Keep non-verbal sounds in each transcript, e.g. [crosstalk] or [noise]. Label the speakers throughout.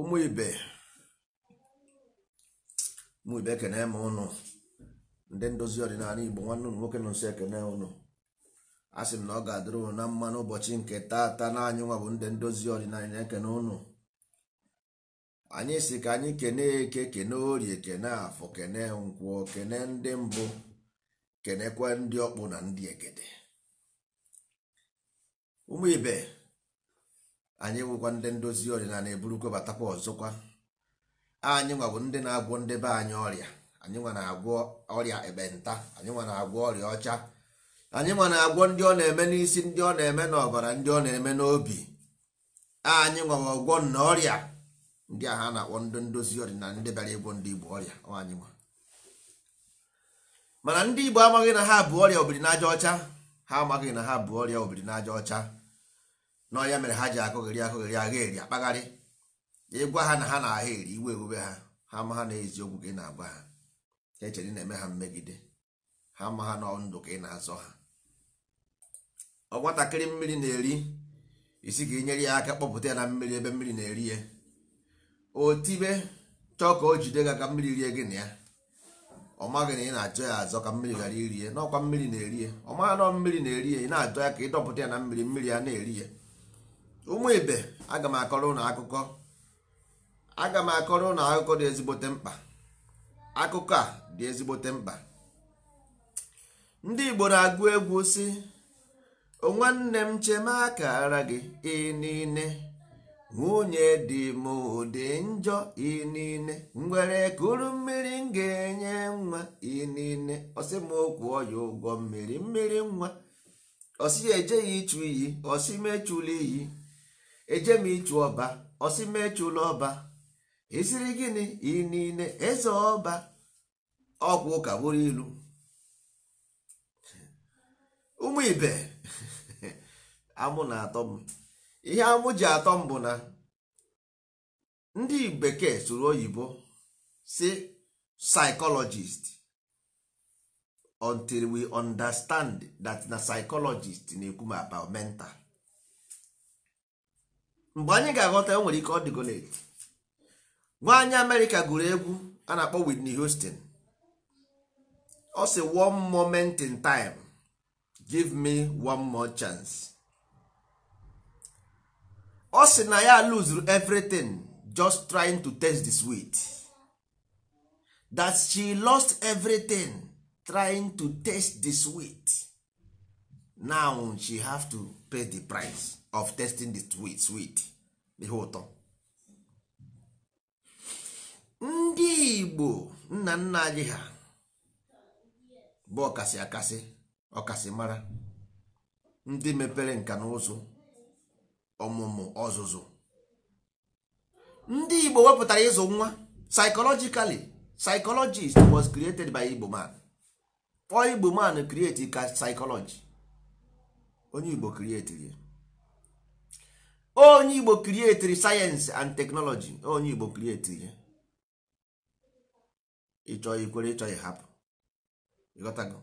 Speaker 1: ụmụ ibe ụmụ ibe ekene m ụnụ ndị ndozi ọdịnala igbo nwanne ụmụ nwoke nọ nso ekene ụnụ a sị m na ọ ga-adịrị ụnụ na mma n'ụbọchị nke taata na nwa bụ ndị ndozi ọdịnala na-ekene ụnụ anyị si ka anyị kene eke kene orie kene afọ kene nkwụọ kene ndị mbụ kenekwa ndị ọkpụ na ndị egede ụmụ ibe anyị nwekwa ndị ndozi ọdịnala eburukwe batakwa ọzọkwa anyị nwa ndị na-agwọ ndị be anyị ọrịa anyị nwa na-agwọ ọrịa ekpenta anyị nwa na-agwọ ọrịa ọcha anyị nwa na-agwọ ndị ọ na-eme n'isi ndị ọ na-eme n'ọbara ndị ọ na-eme n'obi anyị nwa ọgwọ na ọrịa ndị ahụ a na-akpọ ndị ndozi ọdịnala ndị bịara ịgwọ ndị igbo ọrịa anyị nwa mana ndị igbo amaghị na ha bụ ọrịa obiri ọcha ha amaghị na ha bụ ọrịa obiri ọcha na ya mere ha ji akụghịrị akụghịrị agha eri akpagharị ịgwa ha na ha na-agha eri iwe ewube ha ha ma ha na eziokwu ka ị na-agwa ha echere na-eme ha mmegide ha ma ha nọ ndụ ka ị na-azọ ha ọnwatakịrị mmiri na-eri isi ka inyere ya aka kpọpụta ya na mmiri ebe mmiri na-eri ya otibe chọọ ka o jide ga ka mmiri rie gị na ya ọ maghị na ị na-achọ ya azọ ka mmiri ghara iri ya n'ọkwa mmiri na-eri ya ọ maghị nọ mmiri na-eri ya ị na-achọ ya ka ị dọpụta ya na mmiri mmiri ya na-eri ya ụmụ ibe aga m akọrọ ụnụ akụkọ m akọrọ ụnụ akụkọ dị ezigbote mkpa akụkọ a dị ezigbote mkpa ndị Igbo na-agụ egwu si nwanne m aka akara gị inine nwunye dị m ụdị njọ nwere ngwere kuru mmiri m ga-enye nwa inine ọsị m okwu ọya ụgwọ mmiri mmiri nwa osi ejeghị ichu iyi osi iyi eje m ịchụ ọba ọsị m ọba esiri gịnị iri niile eze ọba ọgwụ ụka bụrụ ilu ụmụ ibe [laughs] amụ na-atọ m ihe amụ ji atọ m bụ na ndị bekee sụrụ oyibo si psychologist until we understand that na psychologist na-ekwu m about mental mgbe anyị ga-aghọta e nwere ike ọ dịgo nwaanyị amerịka gụrụ egwu a na-akpọ Whitney Houston ọ sị one moment in time give me one more chance ọ sị na ya lose everything just trying to taste the sweet that she lost everything trying to taste the sweet now she have to pay the price of testing the sweet sweet ihe ụtọ ndị igbo nna nna anyị ha bụ ọkasị akasị ọkasị mara ndị mepere nka na ụzụ ọmụmụ ọzụzụ ndị igbo wepụtara ịzụ nwa psychologically psychologist was created by igbo man ọ igbo man create ka psychology onye igbo create ya onye igbo krietiri sayensị and teknọlọji onye igbo krietiri ya eh? ịchọ ikwere ịchọ ịhapụ ịghọtago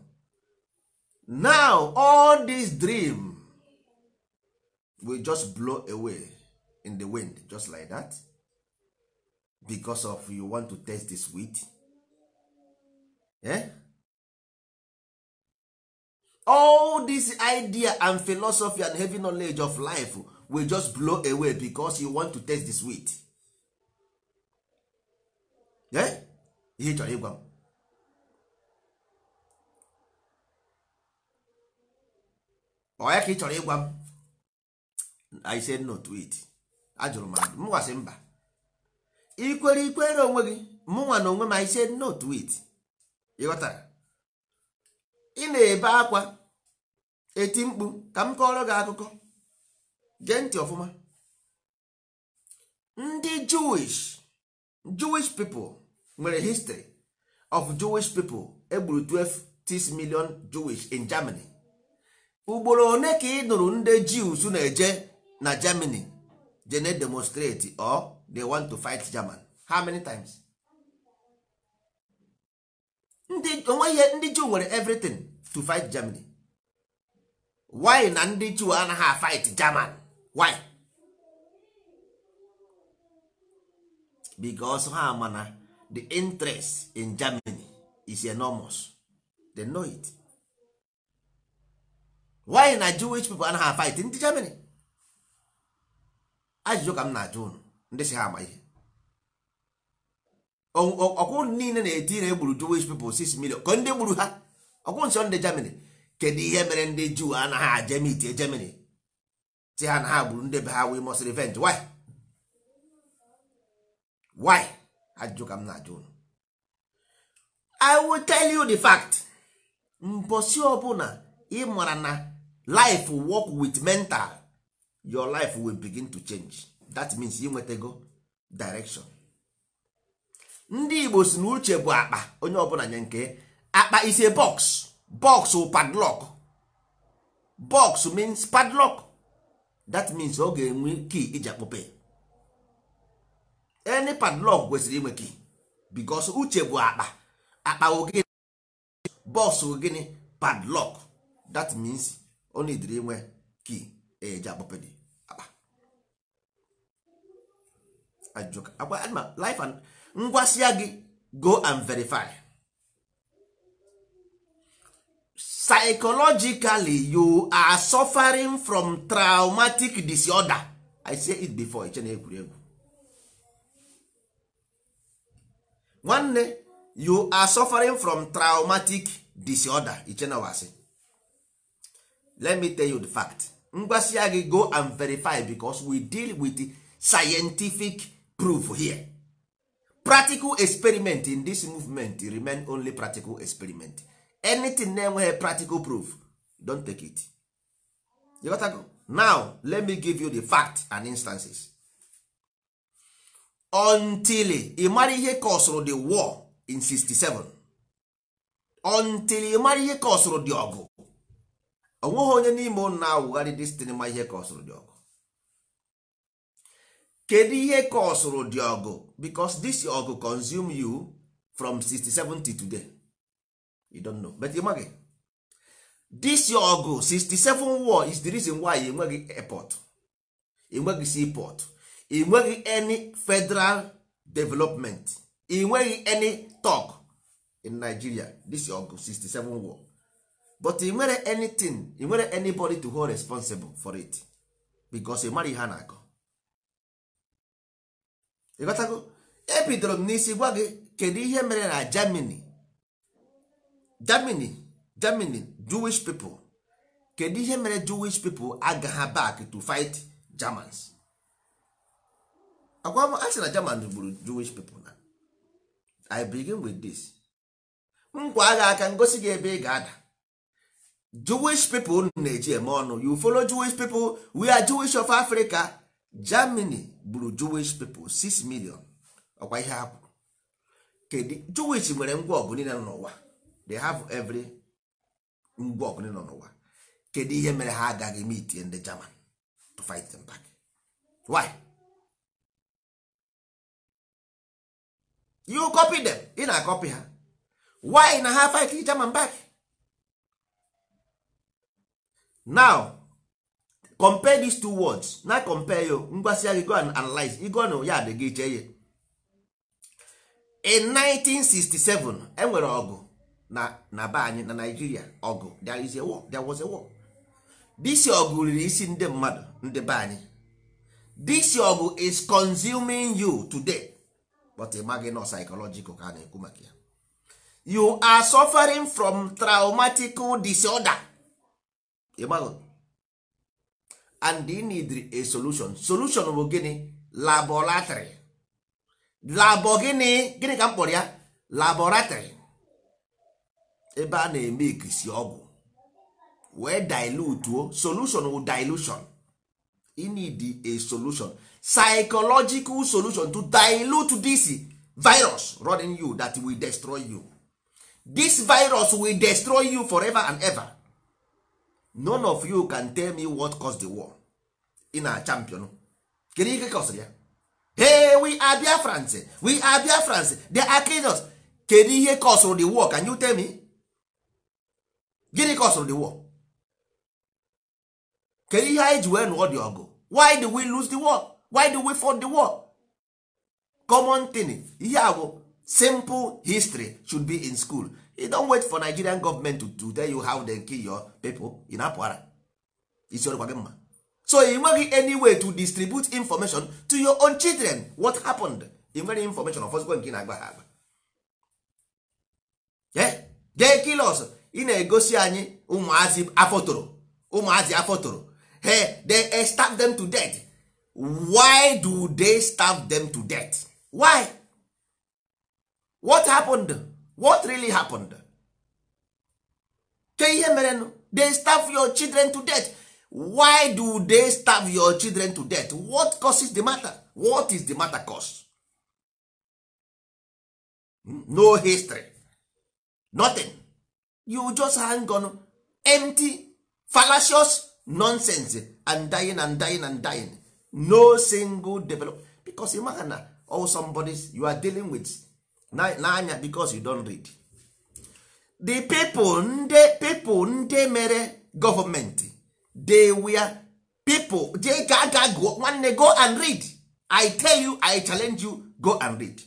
Speaker 1: now all this dream will just blow away in the wind just like that because of you want to test this wit eh? all this idea and philosophy and heavy knowledge of life will just blow away because you want to taste the sweet eh ihe chọrọ ịgwa m ọya ka ị chọrọ ịgwa m i said no to it ajụrụ m gwasị mba ikwere ikwere onwe gị mụnwa na onwe m i said no to it ịghọtara ị na-ebe akwa eti mkpu ka m kọọrọ gị akụkọ gee ntị ọfụma ndị jewish pipo mere nwere of jewish pipo egburu 12 million jewish in germany ugboro one ka ị nụrụ ndị jews na-eje na germany je na demonstrate or they want to fight german how many times ndị ihe ndị jew nwere everything to fight germany why na ndị jew anaghị fight german why because ha mana the interest in germany is enormous they know it why na jewish people anaghị fight ndị germany ajụjụ ka m na-ajụ unu ndị si ha ama ihe ọkwụ niile na-eti na egburu jewish people 6 million ka ndị gburu ha ọkwụ nsọ ndị germany kedu ihe mere ndị juu anaghị aje mitie germany si ha na ha gburu ndị be ha we must revenge why why ajụjụ ka m na-ajụ unu i will tell you the fact mbosi ọbụla ị mara na life work with mental your life will begin to change that means nwetago direction ndị igbo si na uche bụ akpa onye ọbụla nye nke akpa is a box box padlock box means padlock that means ọ ga-enwe key iji akpọpe any padlock kwesịrị inwe key because uche bụ akpa akpa ogene bọs ogene padlock that means ọ na-ediri inwe key eji akpọpe dị akpa ajụjụ akwa life and ngwasịa gị go and verify psychologically you are suffering from traumatic disorder i say it before ichena na egwuregwu nwanne you are suffering from traumatic disorder ichena wasi let me tell you the fact ngwasịa gị go and verify because we deal with scientific proof here practical experiment in this movement remain only practical experiment. anything na-enweghị practical proof don't take it you got to go. now let me give you the fact and instances until ị ihe kọsụrụ the war in 67 until ị ihe kọsụrụ dị ọgụ onweghị onye n'ime ụnụ na-awụgharị dis ma ihe kọsụrụ dị ọgụ kedu ihe kọsụrụ dị ọgụ because this ọgụ consume you from 67 to today you don't know but ịmaghị this your ọgụ 67 war is the reason why enweghị airport enweghị seaport enweghị any federal development enweghị any talk in nigeria this your ọgụ 67 war but ị nwere anything ị nwere anybody to hold responsible for it because ị mara ihe a na-akọ ịghọtago ebidoro m n'isi gwa gị kedu ihe mere na germany germany germany jewish people kedu ihe mere jewish people agagha back to fight germans agwa asị na german gburu jewish people na i begin with this nkwa agha aka ngosi gị ebe ị ga-ada jewish people na-eji eme ọnụ you follow jewish people we are jewish of africa germany gburu jewish people 6 million ọkwa ihe ha kwuru kedu jewish nwere ngwa ọgụ niile n'ụwa they have every ngwa ọgụ nọ n'ụwa kedu ihe mere ha agaghị meet itinye ndị German to fight them back why you copy them ị na copy ha why na ha fight German back now compare these two words na compare yo ngwasi gị go and analyze Ego na ya dị iche ihe in 1967 enwere ọgụ na na be anyị na naijiria ọgụ there was a war this ọgụ riri isi ndị mmadụ ndị be anyị this ọgụ is consuming you today but ị maghị nọ psychological ka a na-ekwu maka ya you are suffering from traumatic disorder ịmaghị and you need a solution solution bụ gịnị laboratory Labọ gịnị gịnị ka m kpọrọ ya laboratory ebe a na-eme ikisi ọgwụ wee dilutuo solution wụ dilution e need a solution psychological solution to dilute this virus running you that will destroy you this virus will destroy you forever and ever none of you can tell me what caused the war ị na champion kedu ihe kọsịrị ya hey we are france we are france they are us kedu ihe kọsụrụ the war can you tell me gịnị ka ọsụrụ the war kedu ihe anyị ji wee nụọ dị ọgụ why do we lose the war why do we fought the war common thing ihe agwụ, simple history should be in school you don't wait for nigerian government to, to tell you how they kill your people ị na-apụ ara isi gị mma so ị nweghị any way to distribute information to your own children what happened I nwere information ọfọzikwa nke ị na-agba ha agba they kill us ị na-egosi anyị ụmụazị afọtoro ụmụazị afotoro hey they starve them to death why do they starve them to death why what happened what really happened ke ihe merenụ they starve your children to death why do they starve your children to death what causes the matter what is the matter cause hmm? no history nothing you just hang on empty fallacious nonsense and dying and dying and dying no single develop because you maha na all somebodies you are dealing with n'anya because you don read the people ndị people ndị mere government they were people dey ga ga go nwanne go and read i tell you i challenge you go and read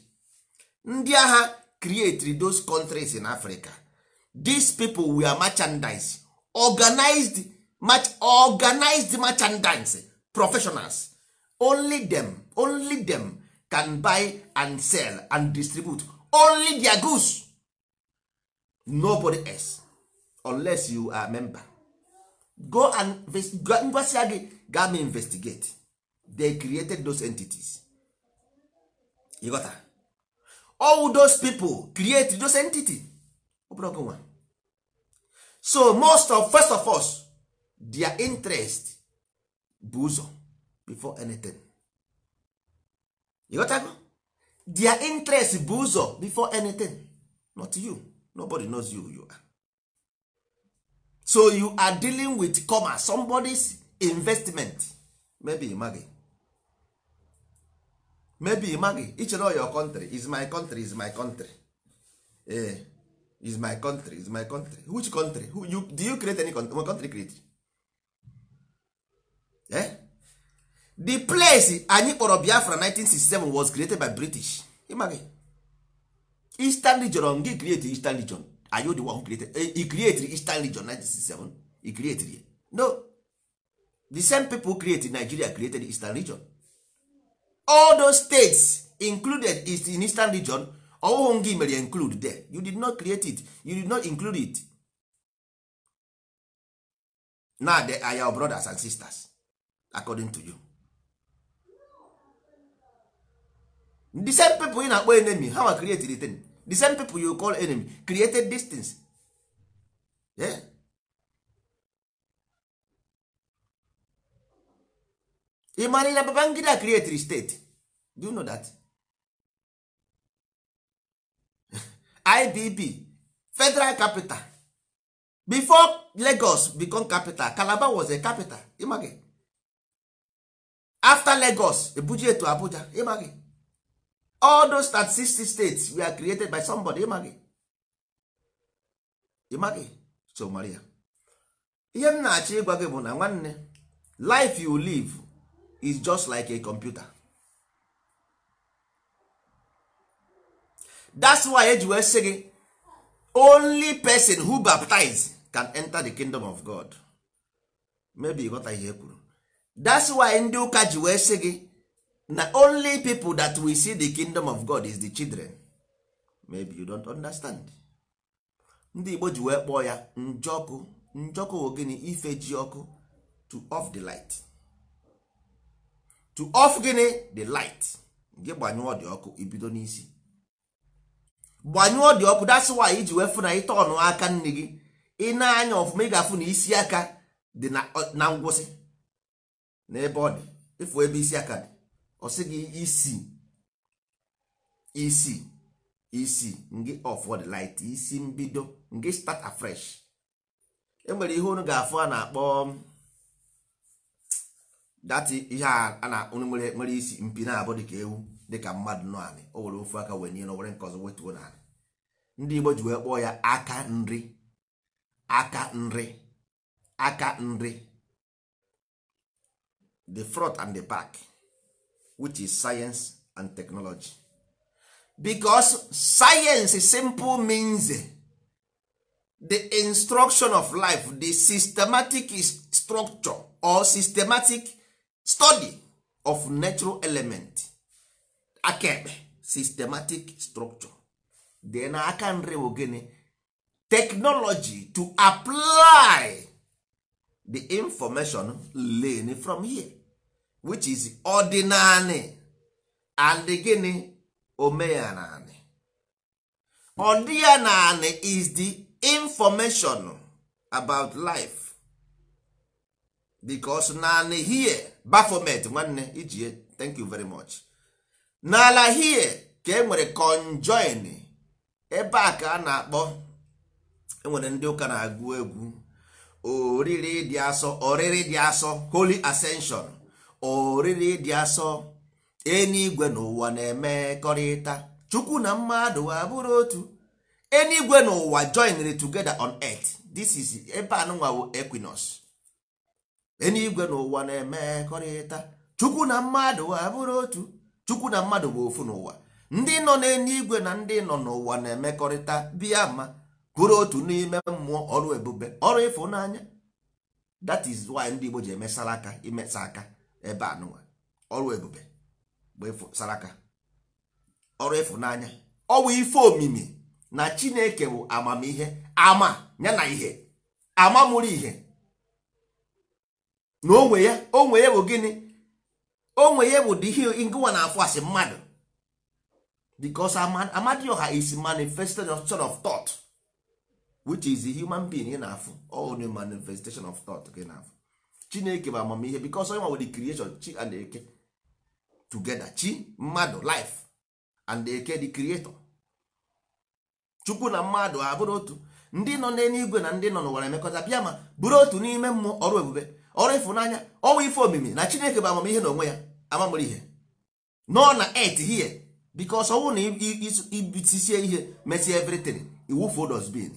Speaker 1: ndị agha create those countries in africa these people were merchandise organized much organized merchandise professionals only them only them can buy and sell and distribute only their goods nobody else unless you are a member go and ngwasịa gị gam investigate they created those entities you got all those people create those entities ọbụrụ so most of first of us their interest bụ ụzọ before anything ịghọtago their interest bụ ụzọ before anything not you nobody knows you you are so you are dealing with commerce somebody's investment maybe ịmaghị maybe ịmaghị ichere your country is my country is my country eh is my country is my country which country who you do you create any country, my country create eh? the place anyị kpọrọ biafra 1967 was created by british ịmaghị eastern region gị create eastern region are you the one who created eh, he created eastern region 1967 he created it. no the same people created nigeria created eastern region all those states included is in eastern region ọwụhụ gị mere include there you did not create it you did not include it Na they are your brothers and sisters according to you the same people you na-akpọ enemy how I created it the same people you call enemy created distance. things yeah? ị mara na Babangida created state do you know that? ibb federal capital before lagos become capital calabar was a capital ịmaghị after lagos ebuji etu abuja ịmaghị all those 36 states were created by somebody ịmaghị ịmaghị so Maria ihe m na-achọ ịgwa gị bụ na nwanne life you live is just like a computer that's why ji wee sị gị only person who baptize can enter the kingdom of god maybe ghọta ihe kwuru that's why ndị ụka ji wee sị gị na only people that we see the kingdom of god is the children maybe you don't understand ndị igbo ji wee kpọọ ya njọkụ njọkụ wo gịnị ife ji ọkụ to off the light to off gịnị the light gị gbanyụọ dị ọkụ ibido n'isi gbanyụọ dị ọkụ that's iji wee fụ na ịta ọnụaka aka nne gị ị na-anya ọfụma ị ga-afụ na isi aka dị na ngwụsị n'ebe ọ dị ịfụ ebe isi aka dị ọ sị gị isi isi isi ngị of the light isi mbido ngị start afresh enwere ihe unu ga-afụ a na-akpọ dati ihe a na nwere isi mpi na-abụ dị ka ewu dịka mmadụ nọ anị o were ofu aka wee nye na nke ọzọ wetuo na anị ndị Igbo ji wee kpọọ ya aka nri aka nri aka nri the front and the back which is science and technology because science simple means the instruction of life the systematic structure or systematic study of natural element akaekpe systematic structure dị na aka nri bụ gịnị technology to apply the information learned from here which is ordinary and gịnị naanị. ordinary is the information about life because naanị here bafomet nwanne ijie thank you very much. n'ala hie ka e nwere conjoin ebe a ka a na-akpọ enwere ndị ụka na-agụ egwu oriri dị asọ oriri dị asọ holy ascension oriri dị asọ enigwe n'ụwa na-emekọrịta chukwu na mmadụ abụrụ otu enigwe n'ụwa joinere together on earth this is ebe anụnwa bụ equinox enigwe n'ụwa na-emekọrịta chukwu na mmadụ abụrụ otu chukwu na mmadụ bụ ofu n'ụwa ndị nọ igwe na ndị nọ n'ụwa na-emekọrịta bịa ma bụrụ otu n'ime mmụọ ọrụ ebube ọrụ ịfụnanya that is nwanyị ndị Igbo ji eme aka imesa aka ebe a n'ụwa ọrụ ebube bụ saraka ọrụ ịfụnanya ọwụ ife omimi na Chineke bụ amamihe ama ya na ihe ama mụrụ ihe na onwe ya onwe ya bụ gịnị onwe ya bụ dị hill ngụwa na afọ asị mmadụ because amadioha is manifested sort of thought which is a human being ị na-afụ all the manifestation of thought ị na-afụ chineke bụ amamihe because onye nwa the creation chi and eke together chi mmadụ life and eke the creator chukwu na mmadụ abụrụ otu ndị nọ n'eluigwe na ndị nọ n'ụwa na-emekọta bịa ma bụrụ otu n'ime mmụọ ọrụ ebube ọrụ ịfụnanya ọnwa ife omimi na chineke bụ amamihe na onwe ya amamụrụ ihe nọ na et hie bikos ọnwụ na ibitisie ihe mesie evritin iwufuo dosbin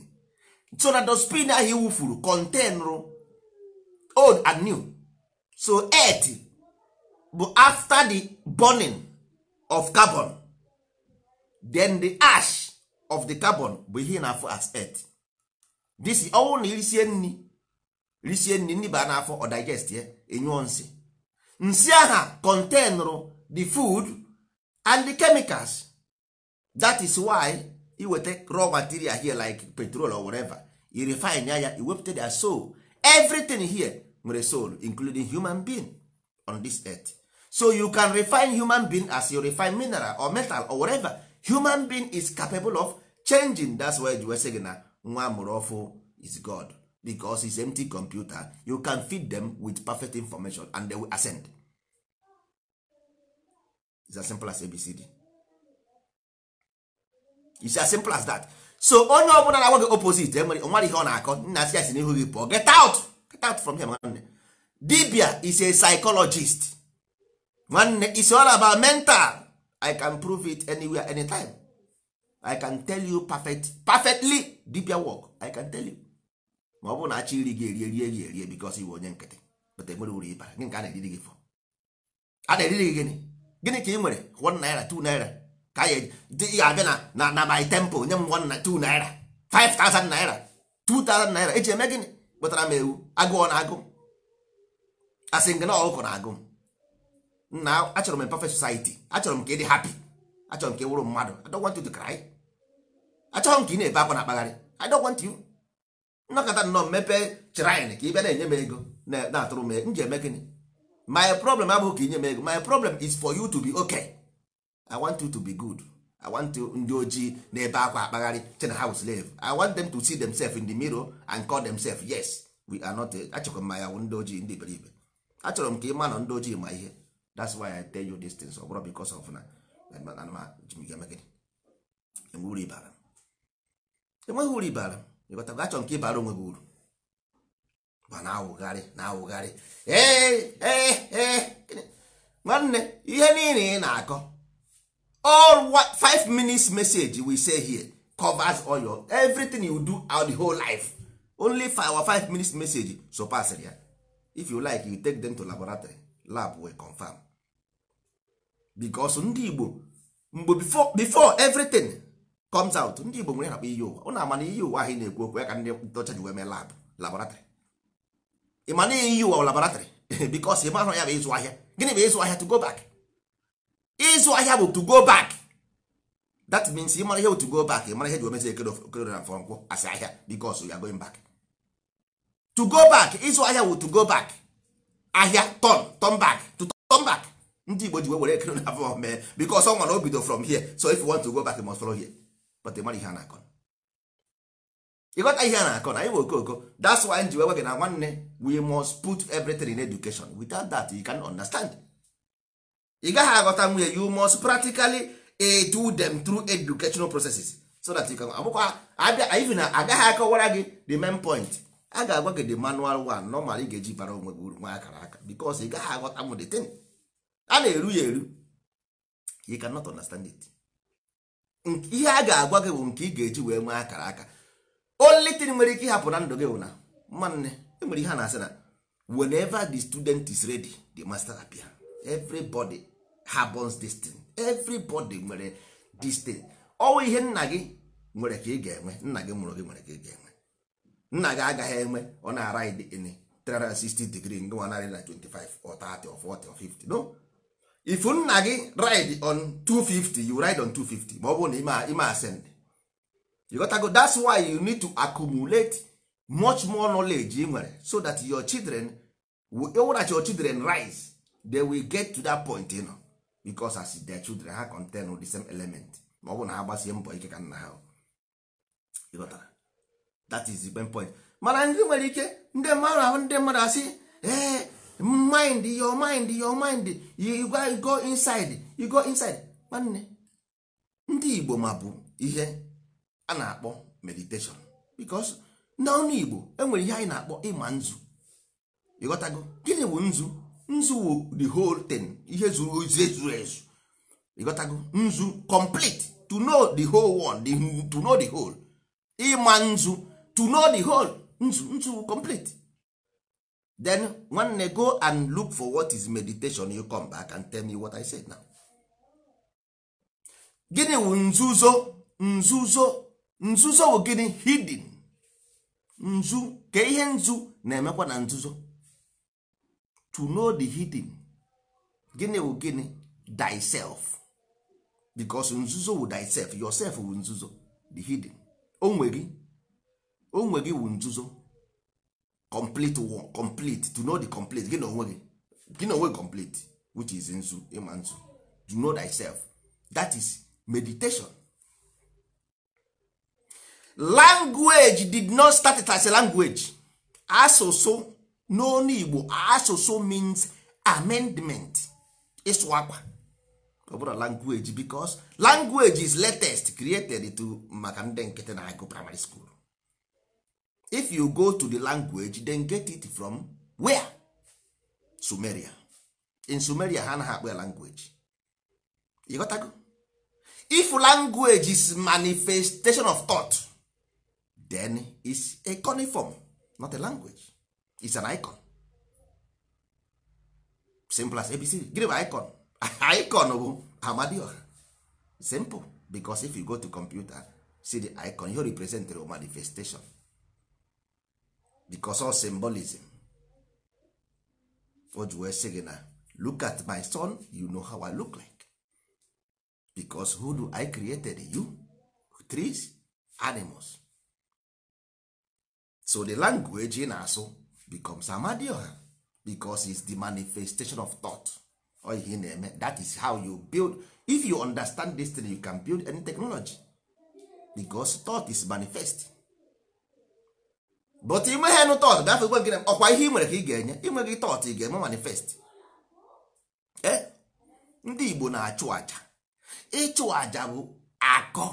Speaker 1: so na dosbin ahụ iwufuru contenrụ old and new so et bụ after the burning of carbon then the ash of the carbon bụ ihe na afọ as et dis ọnwụ na irisie nri risie nri nri baa n'afọ ọ digest ya enyụọ nsị nsị aha contenrụ the food and the chemicals that is why iweta raw material here like petrol or whatever you refine ya iwepụta their soul everything here nwere soul including human being on this earth so you can refine human being as you refine mineral or metal or whatever human being is capable of changing that's why ji gị na nwa mụrụ is god because it's empty computer you can feed them with perfect information and they will ascend it's as simple as abcd it's as simple as that so onye ọbụla na-agwa gị opposite enwere nwere ihe ọ na-akọ nna si asị n'ihu gị pụọ get out get out from here nwanne dibia is a psychologist nwanne is all about mental i can prove it anywhere anytime i can tell you perfect, perfectly dibia work i can tell you ma ọ bụ na achọ iri gị erie rie gị erie bikos iwe onye nkịtị pụta enwere uru ịbara gị nke a na-eriri gị fọ a na-eriri gị gịnị gịnị ka ị nwere one naira two naira ka ya ị ga-abịa na na na my temple nye m one na 2 naira thousand naira two thousand naira eji eme gịnị kpụtara m ewu agụọ na agụ asị gị na ọkụkọ na agụ nna achọrọ m perfect society achọrọ m ka ị dị hapi achọrọ m ka ị wụrụ mmadụ I don't want you to m ka ị na-ebe akwa na akpagharị I don't want you nnọkọta nnọọ mepee shrine ka ị bịa na-enye m ego na-atụrụ m nji eme gịnị my problem abụghị ka inye m ego my problem is for you to be okay i want you to be good i want you ndị ojii na-ebe akwa akpagharị chena ha slave i want them to see themselves in the mirror and call themselves yes we are not achọkwa m ya ndị ojii ndị iberibe achọrọ m ka ị ma na ndị ojii ma ihe that's why i tell you these things ọ bụrụ because of na enweghị uru ibara ịghọtago achọ nke ịbara onwe gị uru ma na-awụgharị na-awụgharị nwanne ihe niile ị na-akọ all 5 minutes message we say here covers all your everything you do out the whole life only for our 5 minutes message surpass ya if you like you take them to laboratory lab will confirm because ndị Igbo mgbe before everything comes out ndị Igbo nwere nakpa iyi ụwa ụnụ ama na iyi ụwa ahụ na-ekwu okwu ya ka ndị ndocha ji wee mee lab laboratrị ị ma na iyi ụwa laboratrị bikos ị mahụ ya bụ ịzụ ahịa gịnị bụ ịzụ ahịa to go back ịzụ ahịa bụ to go back that means ị mara ihe bụ to go back ị mara ihe ji omezi ekedokedo na mfọ nkwụ asị ahịa bikos ya going back to go back ịzụ ahịa bụ to go back ahịa turn turn back to turn back ndị Igbo ji wee were ekedo na afọ mee bikos ọ nwa na o bido from here so if you want to go back you must follow here but ịmara ihe a na-akọ ịghọta ihe a na-akọ na anyị bụ okoko that's why ji wee gị na nwanne we must put everything in education without that you can understand ị gaghị aghọta nwunye you must practically eh, do them through educational processes so that you can abụkwa even agaghị akọwara gị the main point a ga-agwa gị the manual one normal ị ga-eji bara onwe gị nwa akara aka because ị gaghị aghọta m the thing a na-eru ya eru you cannot understand it ihe a ga-agwa gị bụ nke ị ga-eji wee nwee akara aka olitin nwere ike ịhapụ na ndụ gị bụ na e nwere ihe a na-asị na whenever the student is ready the master appear everybody happens this everybody nwere this thing ọwụ ihe nna gị nwere ka ị ga-enwe nna gị mụrụ gị nwere ka ị ga-enwe nna gị agaghị enwe ọ na-ara 360 degree ngwa narị na 25 ọ 30 ọ 40 ọ 50 no if nna gị ride on 250 you ride on 250 ma ọ bụ na ime ascend you got to go that's why you need to accumulate much more knowledge ị nwere so that your children ewerachi your children rise they will get to that point you know, because as their children ha contain with the same element ma ọ bụ na ha gbasie mbọ ike ka nna ha that is the point mana ndị nwere ike ndị mmadụ ahụ ndị mmadụ asị ee mind your mind your mind you go inside you go inside nwanne ndị igbo ma bụ ihe a na-akpọ meditation because n'ọnụ igbo enwere ihe anyị na-akpọ ịma nzu ịghọtago gịnị bụ nzu nzu wụ the whole thing ihe zuru ezu ezu ịghọtago nzu complete to know the whole one to know the whole ịma nzu to know the whole nzu nzu complete then nwanne go and look for what is meditation you come back and tell me what i said now gịnị wụ nzuzo nzuzo nzuzo wụ gịnị hidden nzu ka ihe nzu na-emekwa na nzuzo to know the hidden gịnị wụ gịnị thyself because nzuzo wụ thyself yourself wụ nzuzo the hidden onwe gị onwe gị wụ nzuzo complete work complete to know the complete gị na onwe gị gị na onwe complete which is nzu ịma nzu to know thyself that is meditation language did not start it as a language asụsụ n'onu igbo asụsụ means amendment ịsụ akwa ọ language because language is latest created to maka ndị nkịtị na-agụ primary school if you go to the language then get it from where? Sumeria. in Sumeria ha anaghị akpọ ya language ịghọtago if language is manifestation of thought then it's a coniform not a language it's an icon simple as abc give bụ icon [laughs] icon bụ amadioha simple because if you go to computer see the icon you represent the manifestation because of symbolism for ji wee sị gị na look at my son you know how i look like because who do i created you trees animals so the language ị na-asụ becomes amadioha because it's the manifestation of thought ọ ihe na-eme that is how you build if you understand this thing you can build any technology because thought is manifest but ime ha nụ tọt gafe gwe na ọkwa ihe ị nwere ka ị ga-enye inwe gị tọt ị ga-eme manifest eh? ndị Igbo na-achụ aja ịchụ aja bụ akọ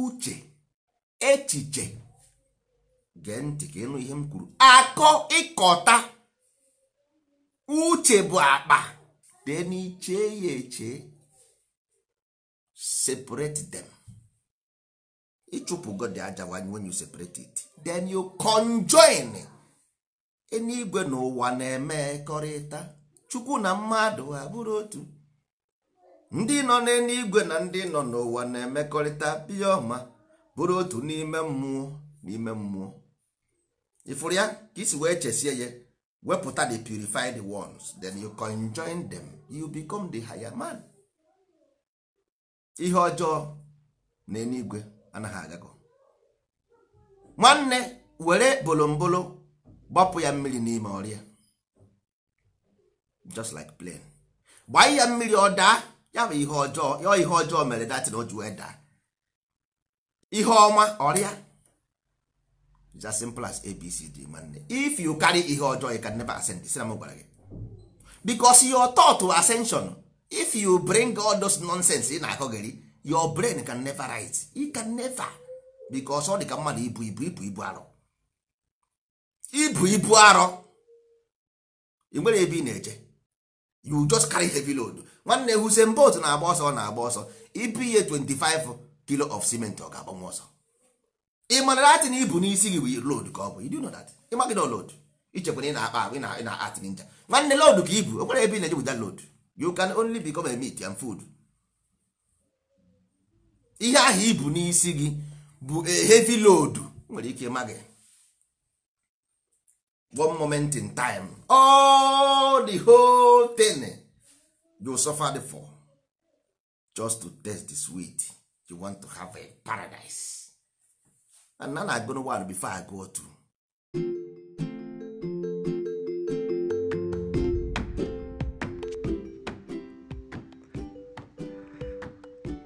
Speaker 1: uche echiche gee ntị ka ịnụ ihe m kwuru akọ ịkọta uche bụ akpa dị n'iche ya eche separate them. ịchụpụgo god aja when you separate it then you conjoin enigwe na ụwa na-emekọrịta chukwu na mmadụ abụrụ otu ndị nọ n'eluigwe na ndị nọ n'ụwa na-emekọrịta biya bụrụ otu n'ime mmụọ n'ime mmụọ ịfụrụ ya ka isi wee chesie ya wepụta the purified ones then you conjoin them you become the higher ihe ọjọọ na enigwe anaghị agago nwanne were bolombolo gbapụ ya mmiri n'ime ọrịa just like plane gbaa ya mmiri ọ daa ya bụ ihe ọjọọ ya ihe ọjọọ mere datin o ji wee daa ihe ọma ọrịa is as simple as abcd nwanne if you carry ihe ọjọọ you can never ascend sina m gwara gị because your thought to ascension if you bring all those nonsense ị na-akọgeri your brain can never write you can never because ọ dị ka mmadụ ibu ibu ibu ibu arọ ibu ibu arọ ị nwere ebe ị na-eje you just carry heavy load nwanne Usain Bolt na-agba ọsọ ọ na-agba ọsọ ibu ihe 25 kilo of cement ọ ga-agbanwe ọsọ ị mara atị na ibu n'isi gị bụ load ka ọ bụ you do know that ịmaghị load ichekwa na ị na-akpa ahụ ị na-atị nja nwanne load ka ibu o nwere ebe ị na-eje wụda load you can only become a meat and food ihe ahụ ibu n'isi gị bụ e, heavy load nwere ike ịma gị one moment in time all the whole thing you suffered for just to taste the sweet you want to have a paradise and na na agụnụ one before I go to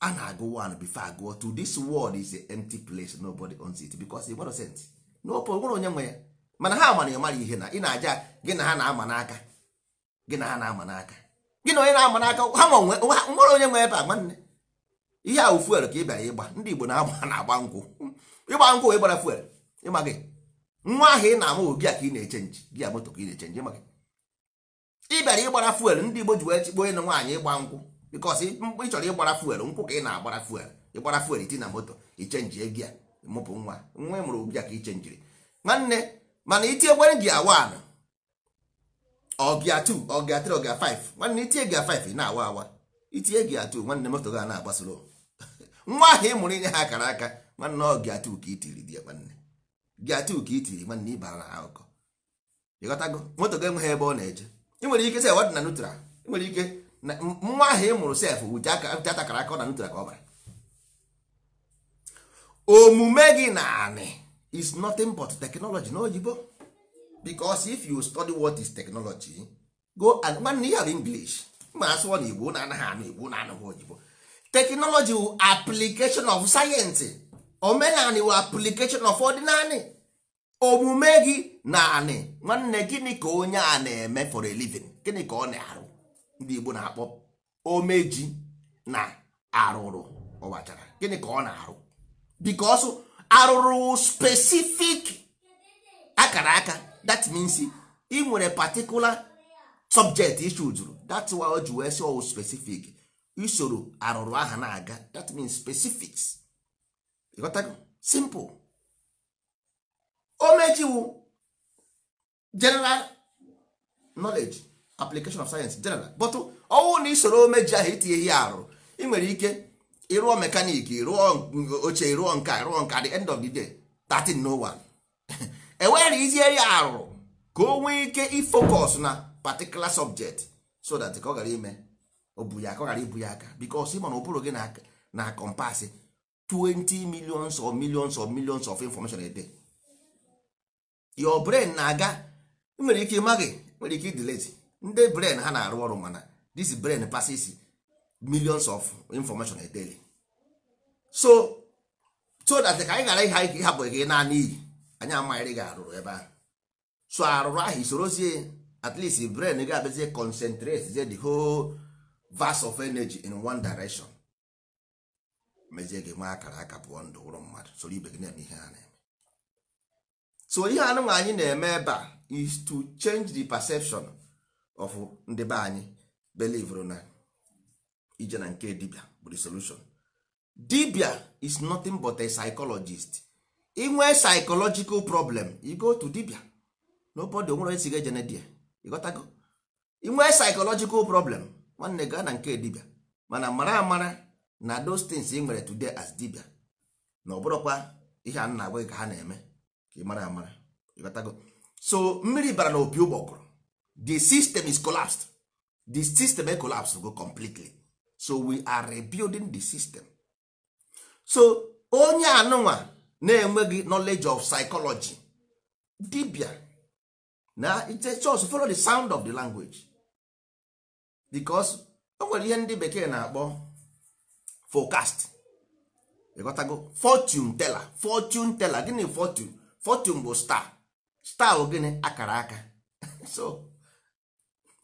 Speaker 1: a na-agụ one before agụọ two this world is a empty place nobody owns it nwere onye nwe mana ha amara ịmara ihe na ị na-aja gị na ha na-ama n'aka gị na ha na-ama n'aka gị na onye na-ama n'aka ha onye nwe ebe a ihe a ka ị bịara ịgba ndị Igbo ịgba nkwụ gbara fuel nwa ahụ ị na-amụ gị a ka ị na-echenji gị a moto ka ị na-echenji maka ị bịara ịgbara fuel ndị Igbo ji wee chikpo onye nwaanyị ịgba nkwụ bikọs ị chọrọ ịgbara fuel nkwụ ka ị na-agbara fuel ịgbara fuel iti na moto ichenjie gị a mụpụ nwa nwa mụrụ gị a ka ichenjiri nwanne mana itie gwere gị awa na ọgịa 2 ọgịa 3 ọgịa 5 nwanne itie gị ị na-awa awa itie gị 2 nwanne moto gị a na-agbasoro [laughs] nwa ahụ ị mụrụ inye ha akara aka nwanne ọgịa 2 ka itiri di ya nwanne gị atụ ka itiri nwanne ịbara na akụkọ ịghọtago moto ga enweghị ebe ọ na-eje ị nwere ike sef na nutra ị nwere ike nwa ahụ ị mụrụ sef wụji atakara aka ọ na nutra ka ọ bara omume gị na anị is nothing but technology n'oyibo because if you study what is technology go and nwanne ya bụ english ma asụọ na igbo na-anaghị anụ igbo na-anụghị oyibo technology wu application of science omenani wụ application of ọdịnani omume gị na anị nwanne gịnị ka onye a na-eme for a gịnị ka ọ na-arụ ndị Igbo na-akpọ omeji na arụrụ ọbachara gịnị ka ọ na-arụ ọsọ arụrụ spesifik akara aka that means ị nwere patikula subject issue jụrụ that's why o ji wee sị specific usoro arụrụ aha na-aga that means specifics simple o general knowledge application of science general but ọnwụ na isoro omeji ahụ itinye ihe arụ ị nwere ike ịrụọ mekaniki rụọ oche rụọ nka rụọ nka the end of the day 13 no ya [laughs] e arụ ka o nwee ike ifocus na particular subject so that ka ọ ime obu ya ka ọ ghara ibu ya aka because ị na ụbụrụ gị na na compass 20 millions of millions of millions of information a day your brain na-aga nwere ike ịmaghị nwere ike idileti ndị brain ha na-arụ ọrụ mana this brain passes millions of information a daily so so that ka anyị ghara ihe ịhapụ gị naanị iyi anyị amaghịrị gị arụrụ ebe ahụ so arụrụ ahụ isorozie at least brain ga-abịazie concentrate zie the whole vast of energy in one direction mezie gị nwa akara aka pụọ ndụ ụrụ mmadụ soro ibe gị na-eme ihe ha so ihe anụnwa anyị na-eme ebe a is to change the perception of ndị be anyị believe na ije na nke dibia bụ the solution dibia is nothing but a psychologist inwe psychological problem you go to dibia nobody onwere esi ga ejene dia ịghọtago inwe psychological problem nwanne gaa na nke dibia mana mara amara na those things ị nwere today as dibia na ọ bụrụkwa ihe a na-agwa gị ka ha na-eme ka ị mara amara ịghọtago so mmiri bara na opi ụgbọgụrụ the system is collapsed the system e collapse go completely so we are rebuilding the system so onye anụnwa na-enweghị knowledge of psychology dibia na just follow the sound of the language because o nwere ihe ndị bekee na-akpọ forecast ịghọtago fortune teller fortune teller gịnị fortune fortune bụ star star gịnị akara aka [laughs] so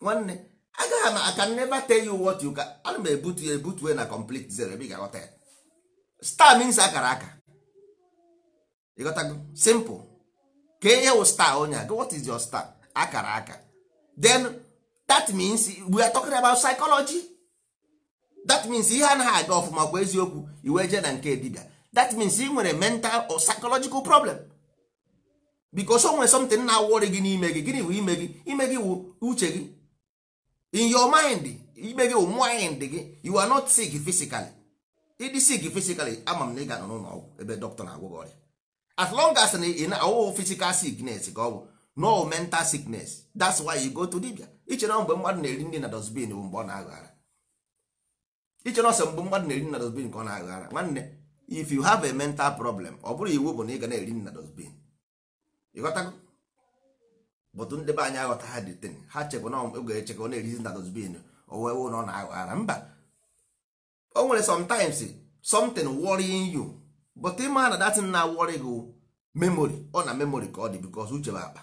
Speaker 1: nwanne agaghị m aka never tell you what you can ana m ebutu ya ebutue na complete zero ebe ị ga-aghọta ya star means akara aka ịghọtago simple ka ihe wụ star onye a what is your star akara aka then that means we are talking about psychology that means ihe anaghị aga ọfụma kwa eziokwu iwe jee na nke dibia that means ị nwere mental or psychological problem because o nwere something na-awọrị gị n'ime gị gịnị bụ ime gị ime gị wụ uche gị in your mind ime gị wụ mind gị you are not sick physically ịdị sick physically ama m na ị ga-anọ n'ụlọ ọgwụ ebe dọkịta na-agwọ gị ọrịa as long as na ị na-awụghị physical sickness ka ọ bụ no mental sickness that's why you go to dibia ichere mgbe mmadụ na-eri nri na dosbin bụ mgbe ọ na-aghara ichere ọsọ mgbe mmadụ na-eri nri na dosbin ka ọ na-aghara nwanne if you have a mental problem ọ bụrụ iwu bụ na ị ga na-eri nri na dosbin Ịghọta bụtụ ndị be anyị aghọta ha dị tin ha chekwa na oge echekwa na-erizi na dozbin owe na ọ na-aghọ ara mba o nwere sometimes something worrying you but ịma na datin na worry gị memory ọ na memory ka ọ dị because uche bụ akpa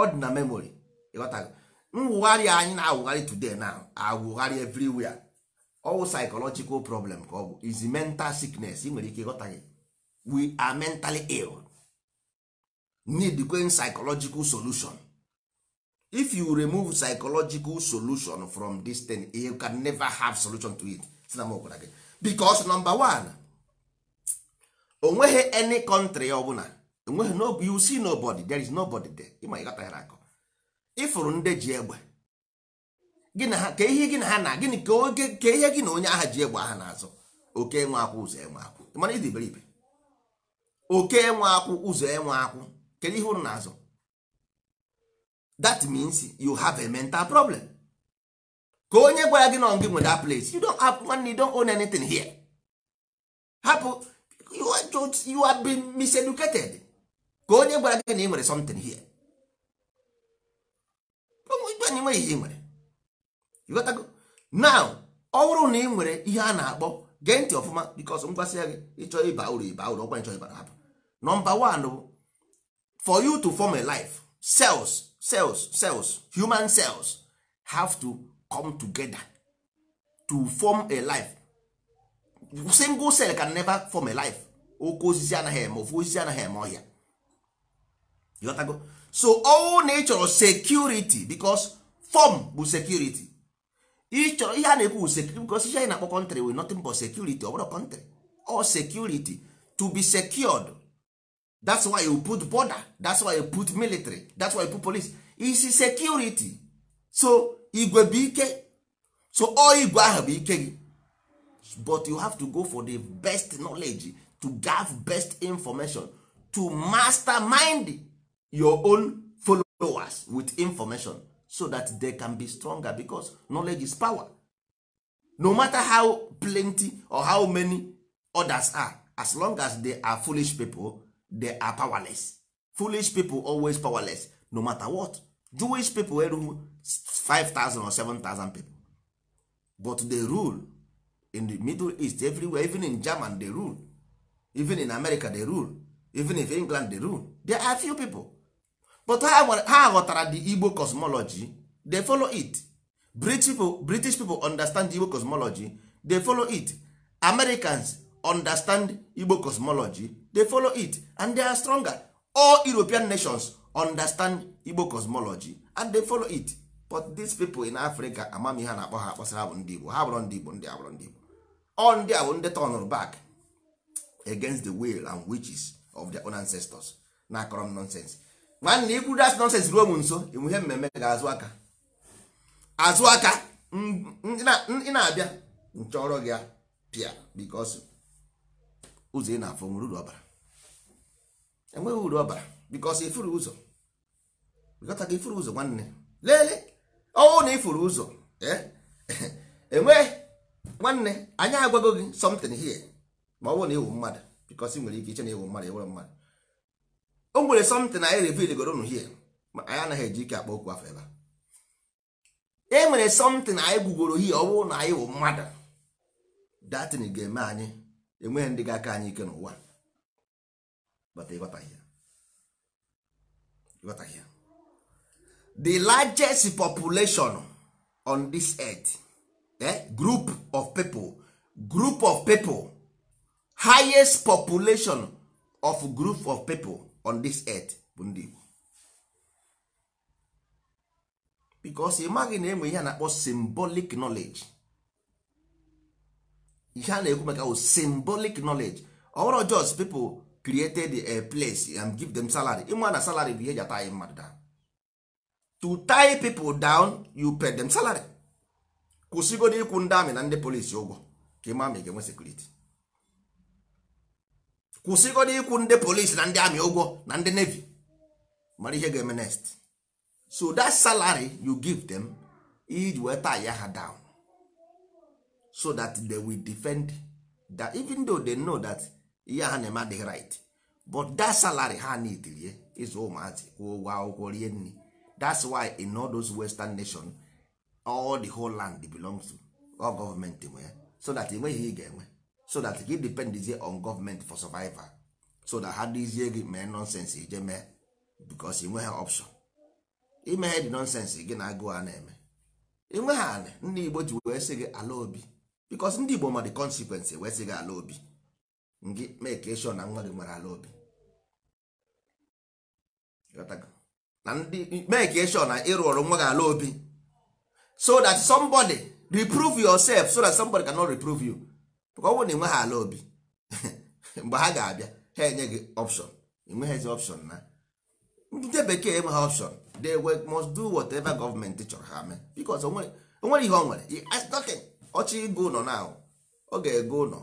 Speaker 1: ọ dị na memory ịghọtago mwụgharị anyị na-awụgharị today na awụgharị everywhere ọwụ psychological problem ka ọ bụ is mental sickness ị nwere ike ịghọta gị we are mentally ill need kwen psychological solution if you remove psychological solution from this thing you can never have solution to it because number one onweghị any country ọbụla onweghị no, you see nobody there is nobody there ịma ịghọtaghara akọ ịfụrụ ndị ji egbe gị na ha ka ihe gị na ha na gịnị ka oge ka ihe gị na onye agha ji egbe aha na-azụ oke nwe akwụ ụzọ enwe akwụ ịmara ịdị iberibe oke nwe akwụ ụzọ enwe akwụ kedu ihe ụrụ na-azụ that means you have a mental problem ka onye gwara gị nọ gị nwe that place you don't have one you don't own anything here hapụ you are, just, you are being miseducated ka onye gwara gị na ị nwere something here anyị nweghị ihe ị nwere ịghọtago now ọ bụrụ na ị nwere ihe a na-akpọ gee ntị ọfụma because m gwasị ya gị ịchọ ịba uru ịba uru ọkwa nchọ ịbara hapụ nọmba 1 bụ for you to form a life cells cells cells human cells have to come together to form a life single cell can never form a life oke osisi anaghị eme ofu osisi anaghị eme ọhịa ịghọtago so all na security because form bụ security ịchọrọ ihe a na-ekwu security because ihe anyị na-akpọ country with nothing but security ọ bụrụ country or security to be secured that's why you put border that's why you put military that's why you put police isi security so igwe bụ ike so all igwe ahụ bụ ike gị but you have to go for the best knowledge to gave best information to mastermind your own followers with information so that they can be stronger because knowledge is power no matter how plenty or how many others are as long as they are foolish people they are powerless foolish people always powerless no matter what jewish people erughị 5000 or 7000 people but they rule in the middle east everywhere even in german they rule even in america they rule even if england they rule there are few people but ha ghọtara the igbo cosmology they follow it british people, british people understand the igbo cosmology they follow it americans understand igbo cosmology they follow it and they are stronger all european nations understand igbo cosmology and they follow it but these people in africa amamihe ha na-akpọ ha akpọsara bụ ndị igbo ha bụrụ ndị igbo ndị abụrụ ndị igbo all ndị a bụ ndị turnụrụ back against the will and witches of their own ancestors na akọrọ nonsens nwanne ikwu das nonsens ruo m nso enwe ihe mmemme ga-azụ aka azụ aka ị na-abịa nchọrọ gị pịa because ụzọ ị na-afụ nwere uru ọbara enweghị uru ọbara bikọs ifuru ụzọ bikọta ka ifuru ụzọ nwanne lelee ọwụ na ifuru ụzọ eh, [laughs] enwe nwanne anyị agwago gị something here ma ọ bụrụ na ịwụ mmadụ bikọs ị nwere ike iche na ịwụ mmadụ ịwụrụ mmadụ o nwere something anyị reveal goro unu here ma anyị anaghị eji ike akpa okwu afọ ebe e nwere something anyị gwugoro here ọ bụrụ na anyị wụ mmadụ datin ga-eme anyị enweghị ndị ga-aka anyị ike n'ụwa ịghọtaghị the largest population on this earth eh? group of people group of people highest population of group of people on this earth bụ ndị Igbo because ị maghị na enwe ihe a na-akpọ symbolic knowledge ihe a na-ekwu maka symbolic knowledge ọwụrụ just people created a place and give them salary ịma na salary bụ ihe ji ataghi mmadụ down to tie people down you pay them salary kwụsịgodo ịkwụ ndị amị na ndị polisi ụgwọ ka ịma ma ị ga-enwe sekuriti kwụsịgodo ịkwụ ndị polisi na ndị amị ụgwọ na ndị nevi mara ihe ga-eme next so that salary you give them iji wee tie ya ha down so that they will defend that even though they know that ihe ha na-eme adịghị right but that salary ha need rie ịzụ ụmụazị kwụọ ụgwọ akwụkwọ rie nri that's why in all those western nation all the whole land belongs to all government nwe ya so that enweghị ị ga-enwe so that depend dependizie on government for survival so that ha dịzie gị mee nonsense ije mee because enweghị option imeghe dị nonsense gị na agụụ a na-eme enweghị anị ndị Igbo ji wee sị gị ala obi bikos ndị igbo ma the consequence wee sị gị ala obi ngị meke e sure na nwa gị nwere ala obi na ndị meke e sure na ịrụ ọrụ nwa gị ala obi so that somebody reprove yourself so that somebody cannot reprove you ka ọ bụrụ na ịnweghị ala obi [laughs] mgbe ha ga-abịa ha enye gị option enweghịzi option na ndị bekee enweghị option they must do whatever gọọmenti chọrọ ha mee bikos onwere ihe ọ nwere nothing ọchị ịgụ ụlọ na ọ ga-ego ụlọ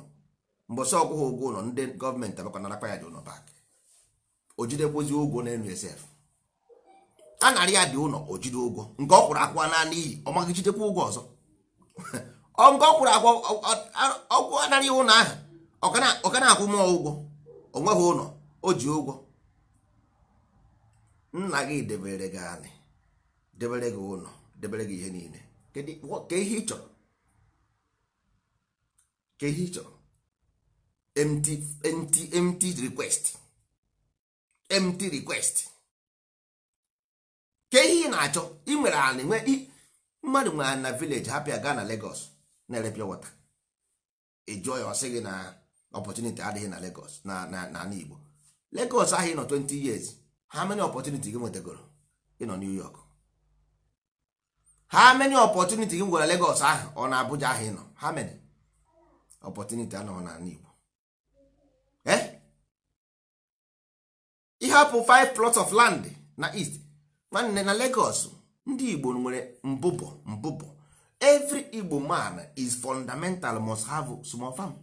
Speaker 1: mbọsị ọgwụghị ụgwọ ụlọ ndị gọọmenti akpa ya dị ụlọ bak o jidekwozi ụgwọ na-enu esef a narị ya dị ụlọ o jide ụgwọ nke ọ kwụrụ akwụ na n'iyi ọ maghị jidekwa ụgwọ ọzọ [laughs] nke ọ kwụrụ akwụ ọgwụ anarị ụlọ ahụ ọ ka na-akwụ mụọ ụgwọ o nweghị ụlọ o ji ụgwọ nna gị debere gị anị debere gị ụlọ debere gị ihe niile ka ihe ị chọrọ ka ihe ị chọrọ empty request request ka ihe ị na-achọ ị nwere ala nwe mmadụ nwere na village hapịa gaa na Lagos na-ere wata water ịjụọ ya ọsị gị na opportunity adịghị na Lagos na na Igbo Lagos ahụ ịnọ 20 years ha many opportunity gị nwetagoro ịnọ New York how many opportunity gị nwere Lagos ahụ ọ na Abuja ahụ ịnọ ha many ọpọtụniti anọghị n'ala Igbo eh? ịhapụ 5 plots of land na east nwanne na Lagos ndị Igbo nwere mbụbọ mbụbọ every Igbo man is fundamental must have small farm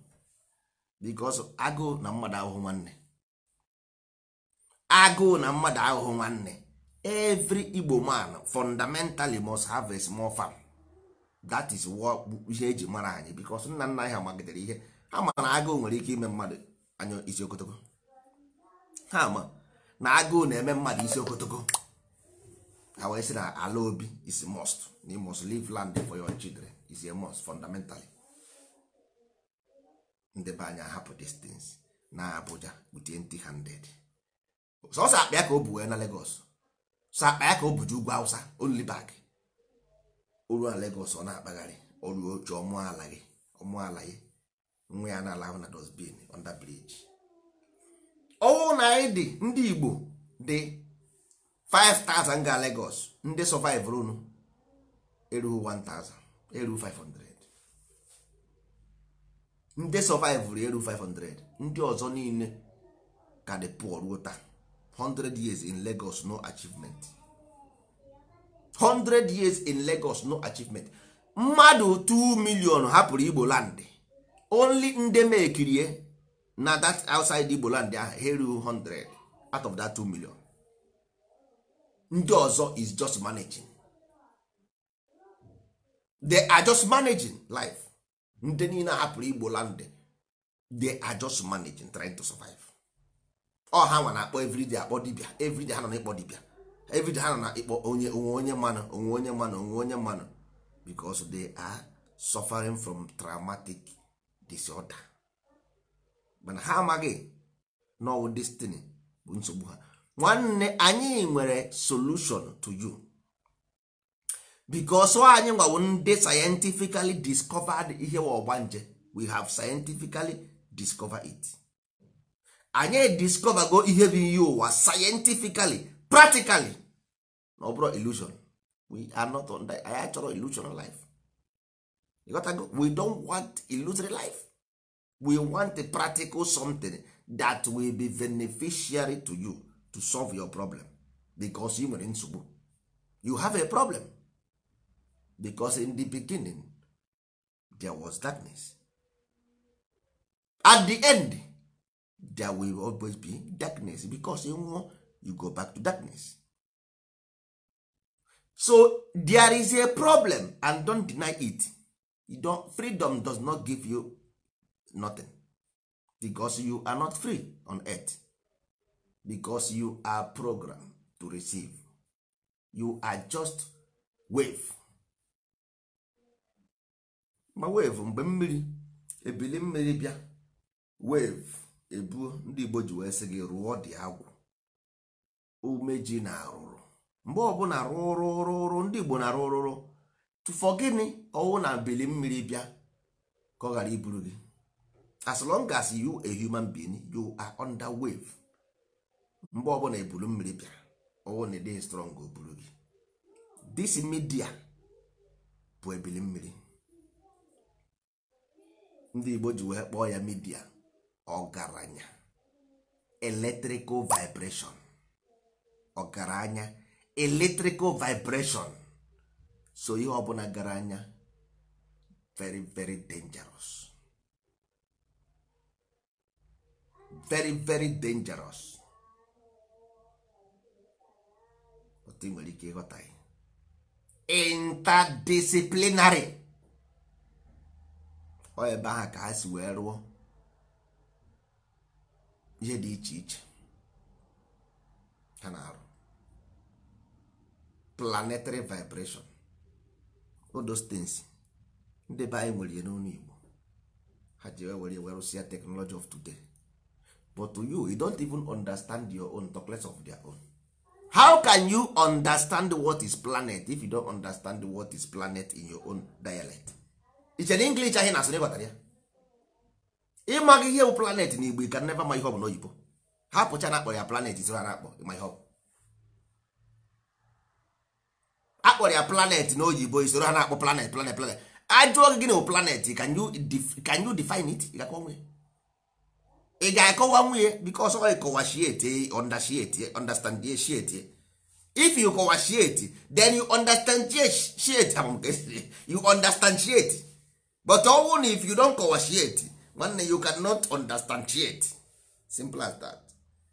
Speaker 1: because agụụ na mmadụ ahụhụ nwanne agụụ na mmadụ ahụhụ nwanne every Igbo man fundamentally must have a small farm that is what ihe eji mara anyị because nna nna anyị ha ihe ha ma na agụụ nwere ike ime mmadụ anya isi okotoko ha ma na agụụ na-eme mmadụ isi okotoko ha wee sị na ala obi is must you must leave land for your children is a must fundamentally ndị be anyị ahapụ distance na Abuja with empty handed sọsọ akpa ya ka o bu wee na Lagos sọ akpa ya ka o bu buju ugwu Hausa only back oru na Lagos ọ na-akpagharị ọrụ oche ọmụala gị ọmụala gị nwa ya na-ala ahụ na dosbin under bridge ọnwụ na anyị dị ndị Igbo dị 5000 ga Lagos ndị survive erughị 1000 erughị 500 ndị survive 500 ndị ọzọ niile ka dị pụọ ruo taa 100 years in Lagos no achievement 100 years in Lagos no achievement mmadụ 2 million hapụrụ Igbo land only nde mekirie eh? na that outside Igbo land ahụ heru 100 out of that 2 million ndị ọzọ is just managing they are just managing life ndị niile hapụrụ Igbo land they are just managing trying to survive ọ ha nwa na-akpọ everyday akpọ dibia everyday ha nọ na-ekpọ dibia everyday ha nọ na ịkpọ onye onwe onye mmanụ onwe onye mmanụ onwe onye mmanụ because they are suffering from traumatic disorder mana ha amaghị now destiny bụ nsogbu ha nwanne anyị nwere solution to you because anyị nwawo ndị scientifically discovered ihe ọgbanje we have scientifically discovered it anyị discover ihe bụ ihe ụwa scientifically practically na ọ bụrụ illusion we are not on that anyị achọrọ illusion life you got to go. we don't want illusory life we want a practical something that will be beneficiary to you to solve your problem because you nwere nsogbu you have a problem because in the beginning there was darkness at the end there will always be darkness because you know you go back to darkness so there is a problem and don deny it you don't, freedom does not give you nothing because you are not free on earth because you are programmed to receive you are just wave ma wave mgbe mmiri ebili mmiri bịa wave ebuo ndị Igbo ji wee sị gị rụọ dị agwụ umeji na arụrụ mgbe ọbụla rụrụ rụrụ ndị Igbo na rụrụ tụfọ gịnị ọwụ na ebili mmiri bịa ka ọ ghara iburu gị as long as you a human being you are under wave mgbe ọbụla ebulu mmiri bịa ọwụ na ịdịghị strong o buru gị this media bụ ebili mmiri ndị Igbo ji wee kpọọ ya midia ọgaranya electrical vibration ọgaranya eletrikal vibreshon so ihe ọbụla gara anya very very dangerous very very dangerous otu nwere ike ịghọta ya interdisciplinary ọ ebe ahụ ka ha si wee rụọ ihe dị iche iche ha na-arụ planetary vibration all those things ndị be anyị nwere igbo ha ji were were rụsịa technology of today but to you you don't even understand your own talk less of their own how can you understand what is planet if you don't understand what is planet in your own dialect iche na english ahụ na-asụ n'ịghọtara ya ịmaghị ihe bụ planet na igbo ị ka never ma ihe ọ bụ n'oyibo hapụcha na akpọ ya planet isi na-akpọ ma ihe akpọrọ ya planet na oyibo isoro ha na-akpọ planet planet planet ajụọ gị na planet can you can you define it ị ga-akọwa nwunye because ọ understand shiete if you kọwashiete then you understand shiete you understand sheet but ọnwụ na if you don kọwashiete nwanne you cannot understand sheet simple as that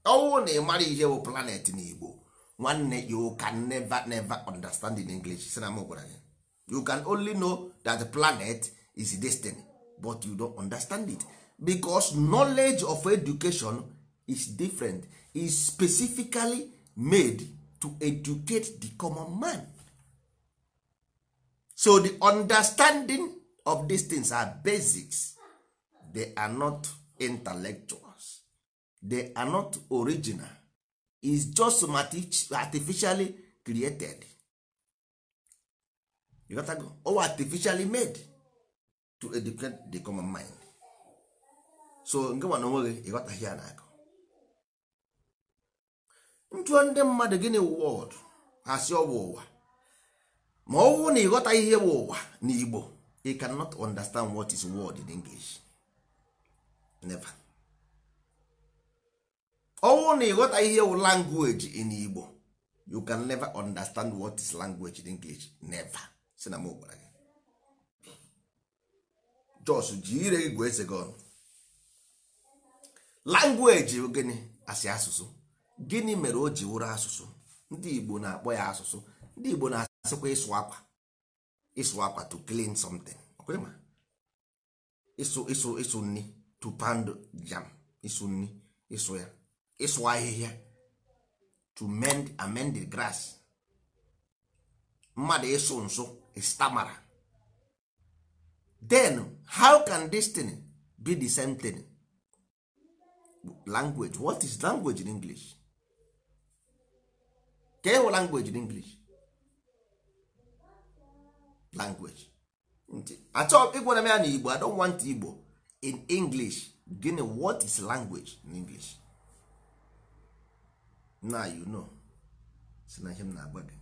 Speaker 1: ọnwụ na ị mara ihe bụ planet na Igbo nwanne you can never never understand in english si na m gwara you can only know that the planet is destiny but you don't understand it because knowledge of education is different is specifically made to educate the common man so the understanding of these things are basics they are not intellectuals they are not original is just artificially created you got go or artificially made to educate the common mind so nke onwe gị, ịghọtaghị ya na-akụ Ntụ ndị mmadụ gịnị wọd asị ọwụ ụwa ma ọ wụ na ịghọtaghị ihe bụ ụwa n'Igbo you cannot understand what is word in English never ọnwụ na ịghọta ihe wụ language in Igbo you can never understand what is language in English never si na m gị jos ji ire gị gwa eze gị ọnụ gịnị asị asụsụ gịnị mere o ji wụrụ asụsụ ndị Igbo na-akpọ ya asụsụ ndị Igbo na-asịkwa ịsụ akwa ịsụ akwa to clean something ịsụ ịsụ ịsụ nni to pound jam ịsụ nri ịsụ ya ịsụ ahịhịa to mend amend the grass mmadụ ịsụ nsụ istamara e then how can this thing be the same thing language what is language in english ka ịhụ language in english language achọ ịgwara m ya na igbo i don't want igbo in english gịnị what is language in english na you know si na ihe m na-agwa gị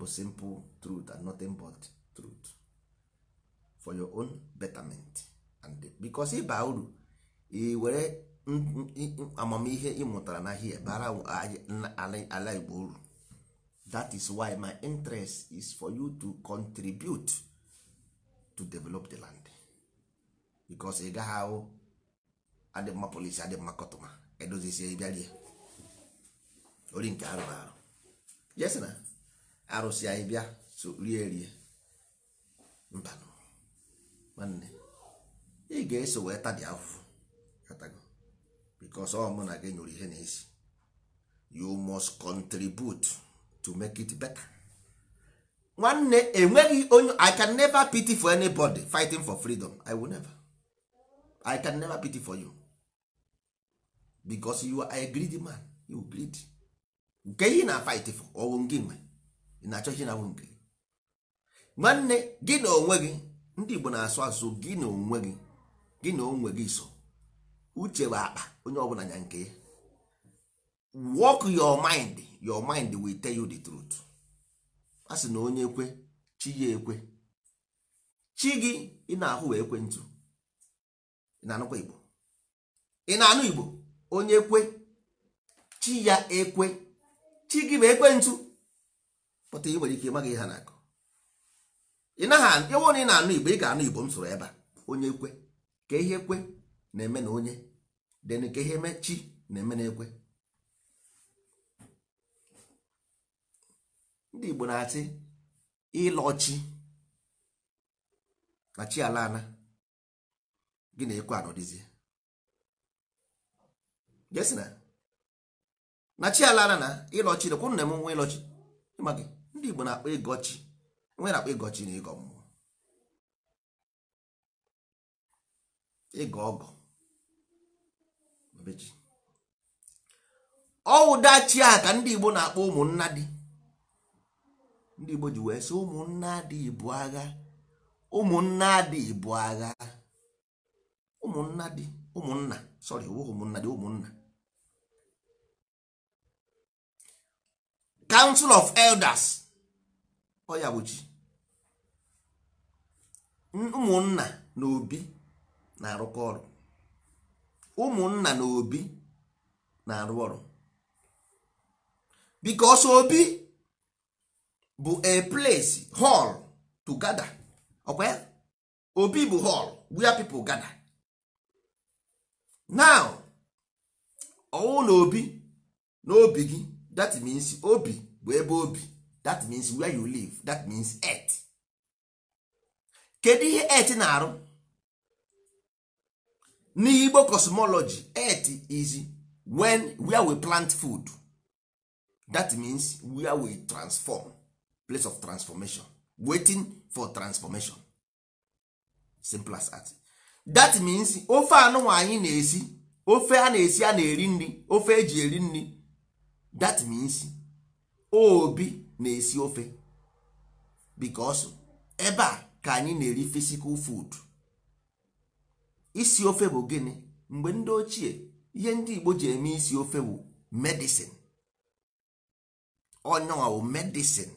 Speaker 1: bụ simple truth and nothing but truth for your own betterment and because ịba uru were amamihe ị mụtara na hie bara ala igbo uru that is why my interest is for you to contribute to develop the land because ị gaghị ahụ adị mma polisi adị mma kọtụma edozisie ori nke arụ arụ jesi na arụsị anyị bịa so rie rie mba nwanne ị ga-eso wee tadi afụfụ katago bikos ọ mụ na gị nyụrụ ihe na-esi you must contribute to make it better nwanne enweghị onye i can never pity for anybody fighting for freedom i will never i can never pity for you because you are a greedy man you greedy nke yi na-fight for ọwụ nke nwe ị na-achọ chi na-awụ nke nwanne gị na onwe gị ndị Igbo na-asụ asụ gị na onwe gị gị na onwe gị so uche bụ akpa onye ọbụla nya nke ya work your mind your mind will tell you the truth a sị na onye ekwe chi ya ekwe chi gị ị na-ahụ wee ekwe ntụ ị na-anụkwa Igbo ị na-anụ Igbo onye ekwe chi ya ekwe chi gị bụ ekwentụ pụta ị nwere ike ịmaghị ha na akụ ị naghị ewu na ị na-anụ igbo ị ga-anụ igbo m soro ebe a onye kwe ka ihe kwe na-eme na onye den ka ihe eme chi na-eme na ekwe ndị igbo na-asị chi na chi ala ala gị na ekwe anọdịzie na chi ala na ịlọchi rekwu nna m nwa ịlọchi ịma gị ndị Igbo na-akpọ ịgọchi nwe na-akpọ ịgọchi na ịgọ mmụọ ịgọ ọgọ ọwụdachi a ka ndị Igbo na-akpọ ụmụnna dị ndị Igbo ji wee sị ụmụnna dị ibu agha ụmụnna dị ibu agha ụmụnna dị ụmụnna sorry ụmụnna dị ụmụnna council of elders ọya bụ chi ụmụnna na obi na-arụkọ ọrụ ụmụnna na obi na-arụ ọrụ because obi bụ a place hall to gather ọkwa ya obi bụ hall where people gather now ọwụ na obi na obi gị that means obi bụ ebe obi that means where you live that means earth kedu ihe earth na-arụ n'igbo cosmology earth is when where we plant food that means where we transform place of transformation waiting for transformation simple as that that means ofe anụnwa anyị na-esi ofe a na-esi a na-eri nri ofe eji eri nri that means obi na-esi ofe because ebe a ka anyị na-eri physical food isi ofe bụ gịnị mgbe ndị ochie ihe ndị Igbo ji eme isi ofe bụ medicine ọnyanwa medicine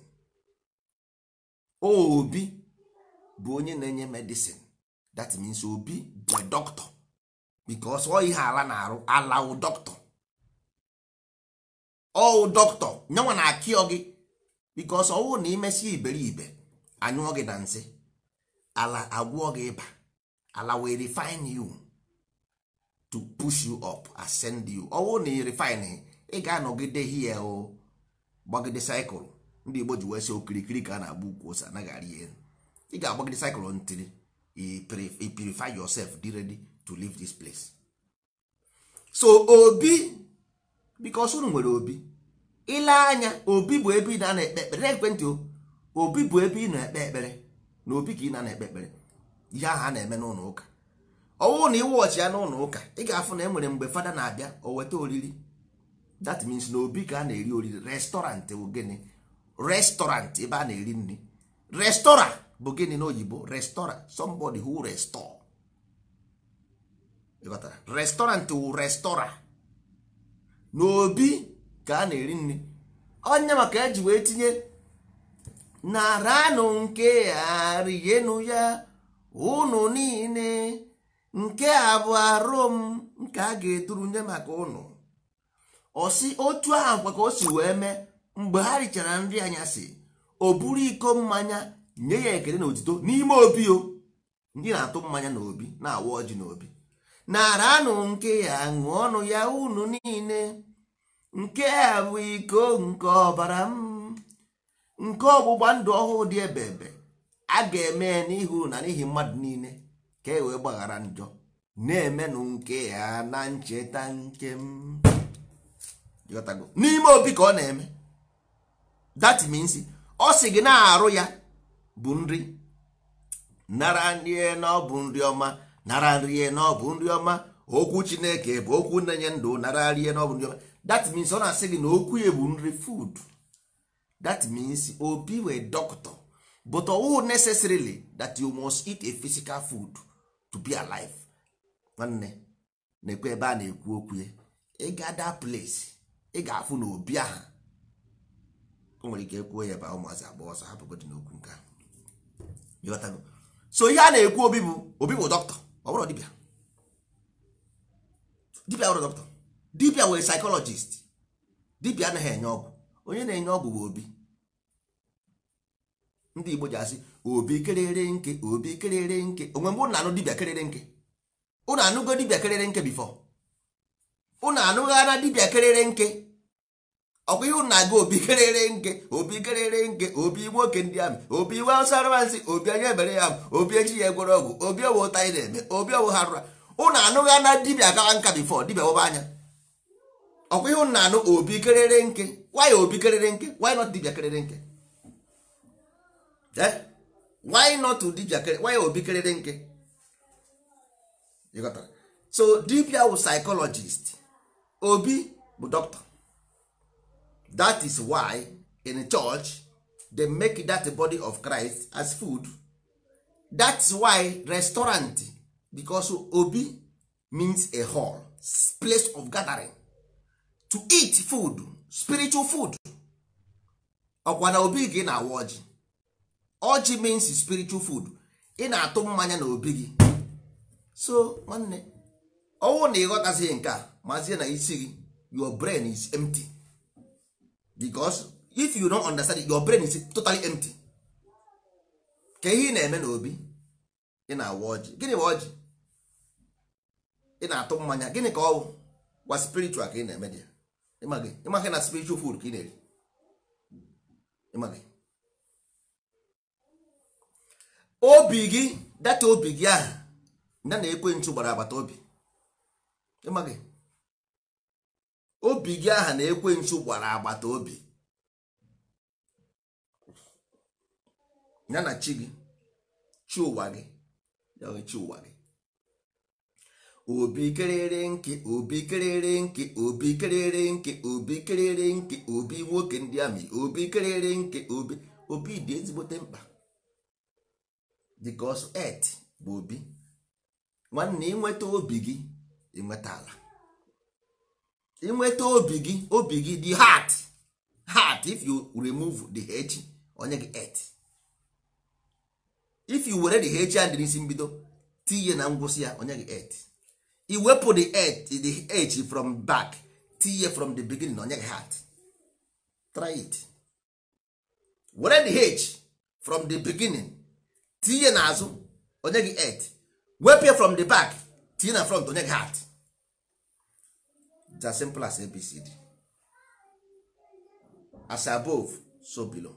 Speaker 1: obi bụ onye na-enye medicine that means obi bụ doctor because ọ ihe ala na-arụ alawụ doctor ọwụ dọkịta nyanwa na-akịọ gị bikos ọwụ na imesi iberibe anyụọ gị na nsị ala agwụọ gị ịba ala wee refin you to push you up ascend you ọwụ na refine ị ga-anọgide hie o gbagide cycle ndị Igbo ji wee si okirikiri oh, ka a na-agba ukwu ose oh, anaghị arị ihe eh. ị ga-agbagide cycle ntiri purify yourself dị ready to leave this place so obi because unu nwere obi ile anya obi bụ ebe ị na-ekpe ekpere o obi bụ ebe ị na-ekpe ekpere na obi ka ị na-ekpe ekpere ihe ahụ a na-eme n'ụlọ ụka ọwụ na ị wọchị ya n'ụlọ ụka ị ga-afụ na enwere mgbe fada na-abịa o weta oriri that means na obi ka a na-eri oriri restọrantị bụ gịnị restọrantị ebe a na-eri nri restọra bụ gịnị n'oyibo restọra somebody who restore restọrantị wụ restọra n'obi ka a na-eri nri onye maka eji wee tinye naranụ nke a ya ụnụ niile nke a bụ arụ m nke a ga-eduru nye maka ụnụ osi otu ahụ kwa ka o si wee mee mgbe ha richara nri si, o buru iko mmanya nye ya ekele na otito n'ime obi o ndị na-atụ mmanya n'obi na-awa ọjị n'obi nara anụ nke ya ọnụ ya unu niile nke a bụ iko nke ọbara m nke ọgbụgba ndụ ọhụụ dị ebe ebe a ga-eme n'ihu na n'ihi mmadụ niile ka e wee gbaghara njọ na-emenụ nke ya na ncheta nke m n'ime obi ka ọ na-eme that means ọ sị gị na-arụ ya bụ nri nara nri na ọ nri ọma nara nrie na ọ bụ nri ọma okwu chineke bụ okwu na-enye ndụ nara nrie na ọ bụ nri ọma that means ọ na-asị gị na okwu ya bụ nri food that means obi wee doctor but ọwụ necessarily that you must eat a physical food to be alive nwanne na-ekwe ebe a na-ekwu okwu ya ịga that place ị ga-afụ na obi ahụ o nwere ike ekwuo ya ebe a ụmụazị agba ọsọ hapụgodị n'okwu nke a so ihe a na-ekwu obi bụ obi bụ dọkịta ọ bụrụ dibịa dibịa ọrụ dọkịta dibịa were psychologist dibịa anaghị enye ọgwụ onye na-enye ọgwụ bụ obi ndị Igbo ji asị obi kerere nke obi kerere nke onwe mgbe ụnụ anụ dibịa kerere nke ụnụ anụgo dibịa kerere nke bifọ ụnụ anụghara dibịa kerere nke ọkwa ihe ụnụ na-aga obi kerere nke obi kerere nke obi nwoke ndị amị obi iwe asaransị obi anya ebere ya obi eji ya egwere ọgwụ obi owo ụta anyị na-eme obi owo ha rụra ụnụ anụghị ana dibia gawa nka bifọ dibia wọba anya ọkwa ihe ụnụ na-anụ obi kerere nke why obi kerere nke why not dibia kerere nke eh? why not dibịa kerere why obi kerere nke so dibia wụ psychologist obi bụ dọkịta. that is why in church they make that body of christ as food is why restaurant because obi means a hall place of gathering to eat food spiritual food ọkwa na obi gị na awa ọjị ọjị means spiritual food ị na-atụ mmanya na obi gị so nwanne ọnwụ na ịghọtazighị nke a mazie na isi gị your brain is empty. because if you don understand it, your brain is totally empty ka ihe ị na-eme n'obi ị na-awa ọjị gịnị ọjị ị na-atụ mmanya gịnị ka ọ gwa spiritual ka ị na-eme dị ya? ịmaghị na spiritual food ka ị na-eri ịmaghị obi gị data obi gị ahụ ndị na-ekwe nchu gbara agbata obi ịmaghị obi gị aha na ekwensu gwara agbata obi ya na chi gị chi ụwa gị ya chi ụwa gị obi kerere nke obi kerere nke obi kerere nke obi kerere nke obi nwoke ndị amị obi kerere nke obi obi dị ezigbote mkpa ọsọ et bụ obi nwanne ịnweta obi gị ịnweta ala inweta obi gị obi gị dị heart heart if you remove the h onye gị et if you were the h and n'isi mbido tinye na ngwụsị ya onye gị et iwepụ the et the h from back tinye from the beginning na onye gị heart try it were the h from the beginning tinye n'azụ onye gị et wepụ ya from the back tinye na front onye gị heart it's as simple as abcd as above so below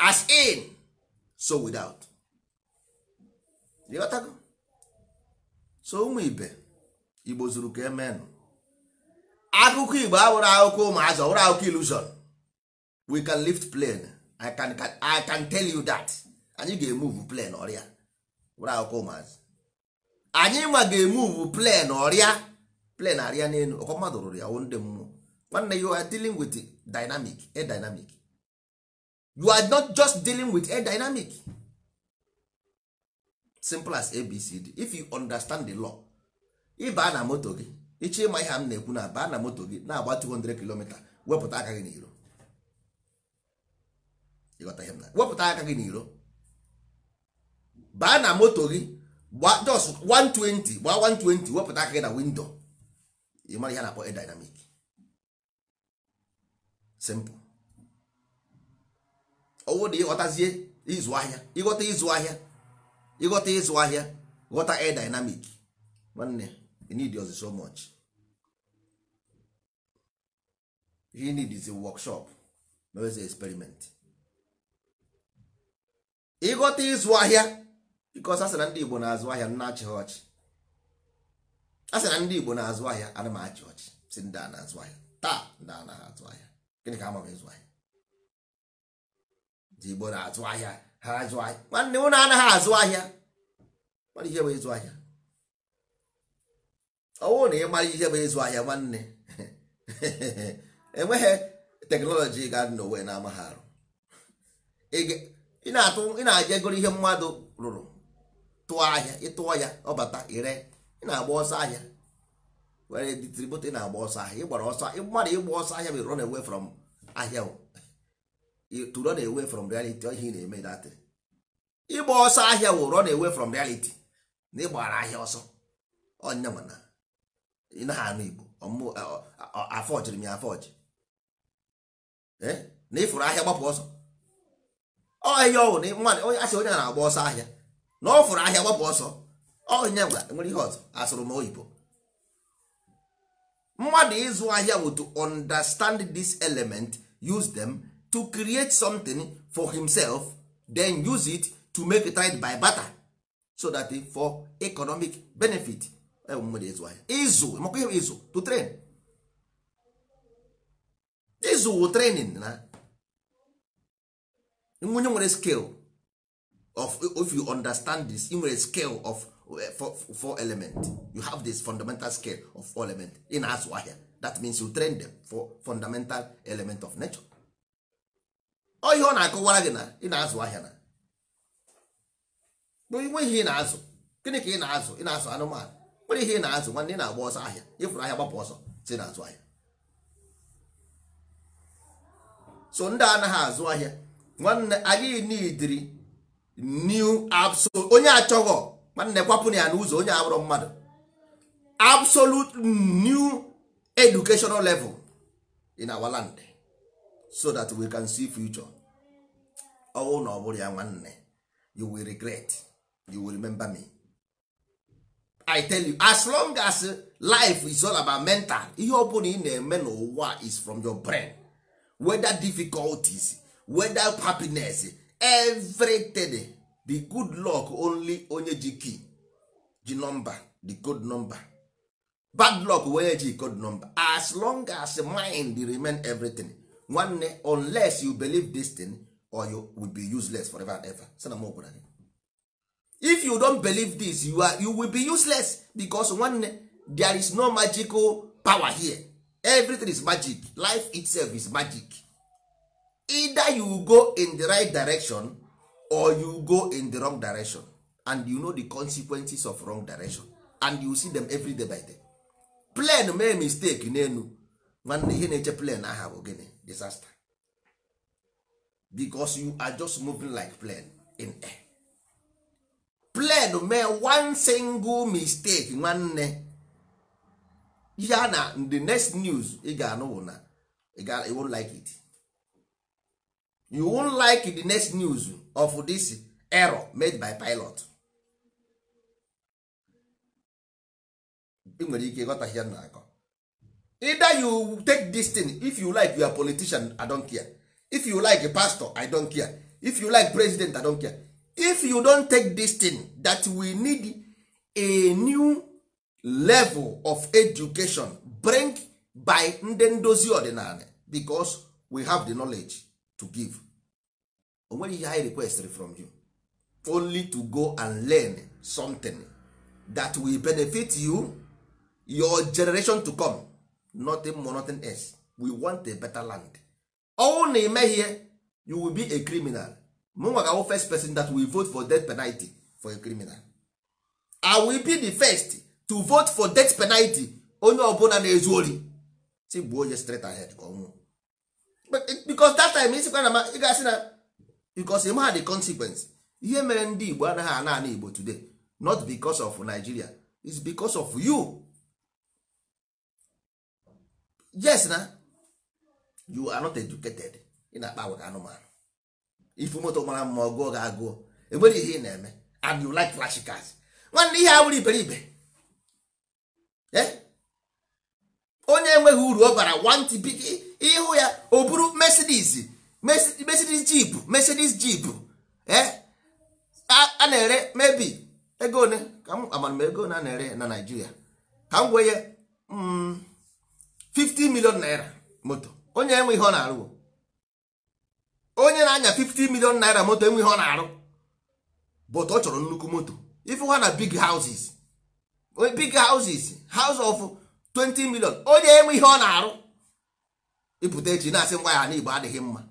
Speaker 1: as in so without ịghọtago so ụmụ ibe igbo zuru ka emenụ akụkọ igbo awụrụ akụkọ ụmụazị ọwụrụ akụkọ ilusion we can lift plane I can, I can tell you that anyị ga-emuvu plane ọrịa wụrụ akụkọ ụmụazị anyị nwa ga-emuvu plane ọrịa plen arịa n'elu ọkwa mmadụ rụrụ ya ndị mmụọ nwanne you are dealing with dynamic a dynamic you are not just dealing with a dynamic simple as abcd if you understand the law ịbaa na moto gị ịchọ ịma ihe m na-ekwu na baa na moto gị na-agba 200 km wepụta aka gị n'iro wepụta aka gị n'iro baa na moto gị gba just 120 gbaa 120 wepụta aka gị na windo ị mara ihe na-akpọ dynamic simple ọwụ na ịghọtazie ịzụ ahịa ịghọta ịzụ ahịa ịghọta ịzụ ahịa ghọta air dynamic nwanne you need us so much you need is a workshop mewezi experiment ịghọta ịzụ ahịa because a sị na ndị Igbo na-azụ ahịa nna achịghị ọchị a sị na ndị igbo na-azụ ahịa ana m achị ọchị si ndị a na-azụ ahịa taa ndị a naghị azụ ahịa gịnị ka ama m ịzụ ahịa ndị igbo na-azụ ahịa ha azụ ahịa nwanne ụlọ anaghị azụ ahịa mara ihe bụ ịzụ ahịa ọwụ na ị mara ihe bụ ịzụ ahịa nwanne [laughs] enweghị teknọlọji ga n'Owe na-amaghị arụ ị na aja egoro ihe mmadụ rụrụ tụọ ahịa ịtụọ ya ọ bata ire ị na-agba ọsọ ahịa were distribute na-agba ọsọ ahịa ịgbara ọsọ mmadụ ịgba ọsọ ahịa bụ run away from ahịa to run away from reality ihe ị na-eme datị ịgba ọsọ ahịa wụ run away from reality na ịgbara ahịa ọsọ onye mana ị naghị anụ igbo afọjiri m ya afọji na ịfụrụ ahịa gbapụ ọsọ ọ ọhịa ọwụ na onye asị onye na-agba ọsọ ahịa na ọ fụrụ ahịa gbapụ ọsọ onye nwa nwere ihe ọzọ asụrụ m oyibo mmadụ ịzụ ahịa bụ to understand this element use them to create something for himself then use it to make it right by barter so that for economic benefit e mmadụ ịzụ ahịa ịzụ ịzụ to train ịzụ wụ training na nwunye nwere skill of if you understand this ị nwere skill of Eh, four, four element you have this fundamental scale of four element ị na-azụ ahịa that means you train them for fundamental element of nature ọ ihe ọ na-akọwara gị na ị na-azụ ahịa na nwe ihe ị na-azụ gịnị ka ị na-azụ ị na-azụ anụmanụ nwere ihe ị na-azụ nwanne ị na-agba ọsọ ahịa ịfụrụ ahịa gbapụ ọsọ si na-azụ ahịa so ndị anaghị azụ ahịa nwanne anyị nidiri new absolute onye achọghọ nwanne kwapụna ya n'ụzọ onye abụrụ mmadụ absolute new educational level in our land so that we can see future ọnwụ na ọ bụrụ ya nwanne you will regret you will remember me i tell you as long as life is all about mental ihe ọbụla ị na-eme n'ụwa is from your brain whether difficulties whether happiness everything the good luck only onye ji key ji nọmba the code number bad luck onye ji code number as long as mind remain everything nwanne unless you believe this thing or you will be useless forever and ever sana m gwara gị if you don't believe this you, are, you will be useless because nwanne there is no magical power here everything is magic life itself is magic either you go in the right direction or you go in the wrong direction and you know the consequences of wrong direction and you see them every day by day plane mee mistake n'elu nwanne ihe na-eche plane aha bụ gịnị disaster because you are just moving like plane in air plane mee one single mistake nwanne ya na the next news ị ga-anụ na ị won't like it you won't like the next news of this error made by pilot ị nwere ike ịghọtahie m na-akọ either you take this thing if you like your politician i don't care if you like a pastor i don't care if you like president i don't care if you don take this thing that we need a new level of education bring by ndị ndozi ọdịnala because we have the knowledge to give o nweghị ihe anyị requestịrị from you only to go and learn something that will benefit you your generation to come nothing more nothing else we want a better land ọnwụ na ihe you will be a criminal mụnwa ga first person that will vote for death penalty for a criminal i will be the first to vote for death penalty onye ọbụla na-ezu ori si gbuo onye straight ahead ka ọnwụ because that time isikwa na ị ga-asị na because ha the consequence ihe mere ndị Igbo anaghị ana ana Igbo today not because of Nigeria is because of you yes na you are not educated ị na-akpa agwa anụmanụ ifu moto mara mma ọgụọ ga agụọ enwere ihe ị na-eme and you like flash cars nwanne ihe awụrụ iberibe e? onye enweghị uru ọ bara want ịhụ ya o buru Mercedes Mercedes Jeep Mercedes Jeep eh? a na-ere mebi ego one ka m amara m ego na na-ere na Naịjirịa ka m gwenye 50 mm, million naira moto onye enwe ihe ọ na-arụ onye na-anya 50 million naira moto enwe ihe ọ na-arụ but ọ chọrọ nnukwu moto ife ha na big houses big houses house of 20 million onye enwe ihe ọ na-arụ ịpụta echi na-asị ngwa ya na Igbo adịghị mma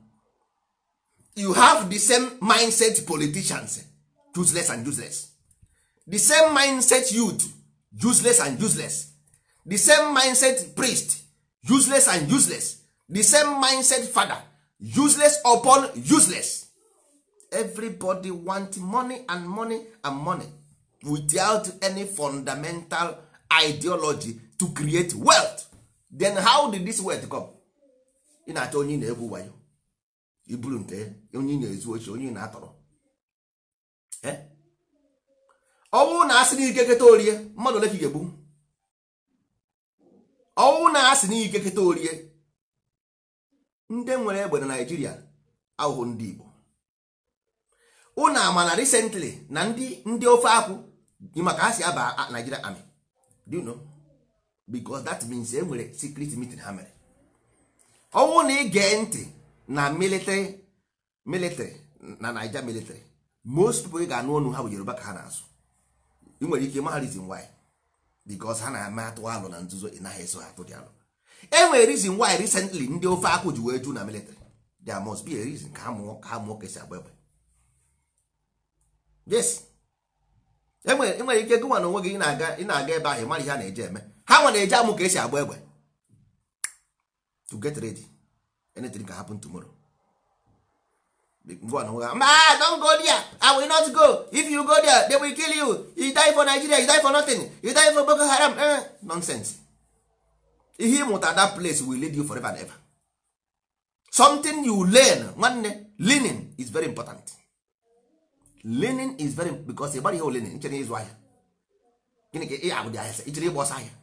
Speaker 1: you have the same mindset politicians eh? useless and useless the same mindset youth useless and useless the same mindset priest useless and useless the same mindset father useless upon useless everybody want money and money and money without any fundamental ideology to create wealth then how did this wealth come ị na-achọ onye na-egwu wayo iburu nke onye na-ezu ochi onye na-atọrọ ọnwụ na-asị n'ike keta orie mmadụ ole ka ị ga-egbu ọnwụ na-asị n'ike keta orie ndị nwere egbe na naijiria ahụhụ ndị Igbo ụnụ ama na recently na ndị ndị ofe akwụ dị maka ha si aba naijiria amị do you know because that means e nwere secret meeting ha mere ọnwụ na ị ntị na military na naija military most pipo ga-anụ ọnụ ha bụ yoruba ka ha na azụ ị nwere ike maa reason why because ha na-eme atụ alụ na nzuzo ị naghị eso ha atụ dị alụ e nwere reason why recently ndị ofe akwụ ji wee ju na military there must be a reason ka ha mụọ ka ha mụọ ka esi agba egbe yes enwere e ike gụnwa na onwe gị ị na-aga ebe ahụ mara ihe a na-eje eme ha nwere eje amụ ka esi agba egbe to get ready anything can happen tomorrow go on ma don go there i will not go if you go there they will kill you you die for nigeria you die for nothing you die for boko haram eh, nonsense ihe ịmụta that place will lead you forever and ever something you learn nwanne learning is very important learning is very because ịgbara ihe olenin nchere ịzụ ahịa gịnị ka ị agụdị ah, ahịa ichere ịgba ọsọ ahịa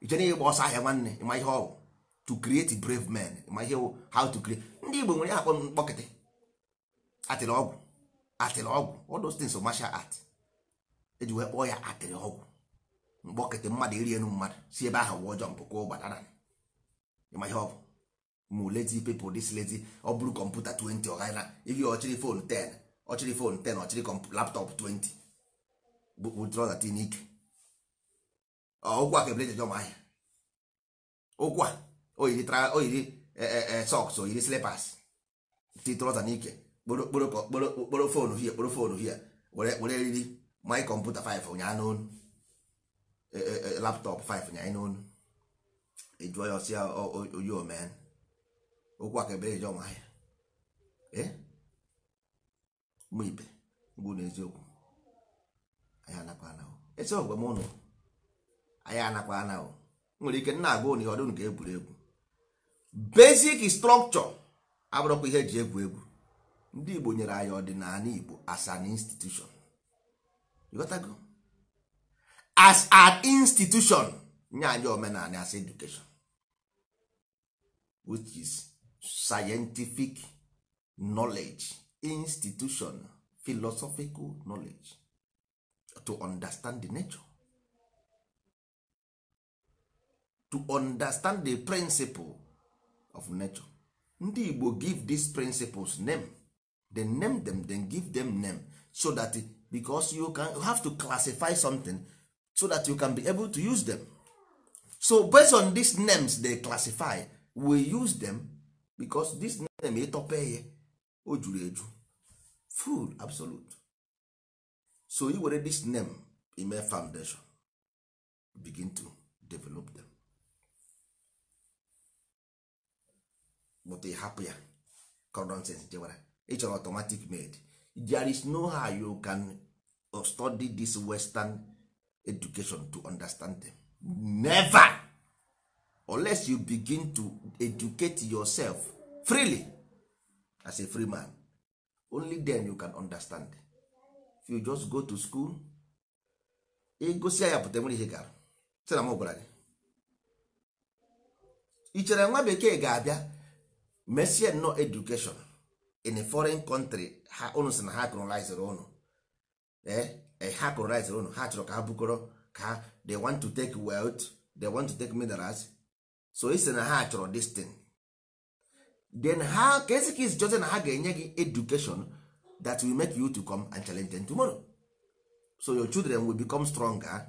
Speaker 1: ichere ịgba ọsọ ahịa nwanne ịma ihe ọ to create brave men ma ihe how to create ndị Igbo nwere akpọ mkpọkịtị atịrị ọgwụ atịrị ọgwụ all those things martial art eji wee kpọọ ya atịrị ọgwụ mkpọkịtị mmadụ iri enu mmadụ si ebe ahụ wụọ jọmpụ ka ụgbadara ma ihe ọ bụ mụ pepụ ọ bụrụ kọmputa 20 ọghara ihe ọchịrị fon 10 ọchịrị fon 10 ọchịrị 20 oyiri oyiri eh, eh, eh, sọks oyiri slipas ti trọza n'ike kporo fon hie kporo fon hie were eriri my kọmputa 5 ụnyaa n'onu laptọp 5 ụnyaa n'onu ejụọ ya ọsịa oyi omee okwu aka ebere eje ọnwa ya mụ ibe ngwụ na eziokwu anyị anakwa anahụ esi ọgwe m ụnụ anyị anakwa anahụ nwere ike nna agụ na ihe ọdụ nke egwuregwu basic structure abụrụkwa ihe ji egwu egwu ndị Igbo nyere anyị ọdịnala Igbo as an institution you got as an institution nye anyị omenala as education which is scientific knowledge institution philosophical knowledge to understand the nature to understand the principle of nature ndị igbo give these principles name then name them then give them name so that because you can have to classify something so that you can be able to use them so based on these names they classify we use them because this name ịtọpe ya o juru eju full absolute so i were this name ime foundation begin to develop them but ị hapụ ya condensens jewara ị chọrọ automatic med there is no how you can uh, study this western education to understand them never unless you begin to educate yourself freely as a free man only then you can understand if you just go to school ịgosi e ya pụta nwere ihe gara sị na m gwara gị ị chere nwa bekee ga-abịa mesie nnọọ education in a foreign country ha unu si na ha colonizere unu ee eh, eh, ha colonizere unu ha chọrọ ka ha bukọrọ ka ha they want to take wealth they want to take minerals so isi na ha chọrọ this thing then ha ka esi ka izijoze na ha ga-enye gị education that will make you to come and challenge them tomorrow so your children will become stronger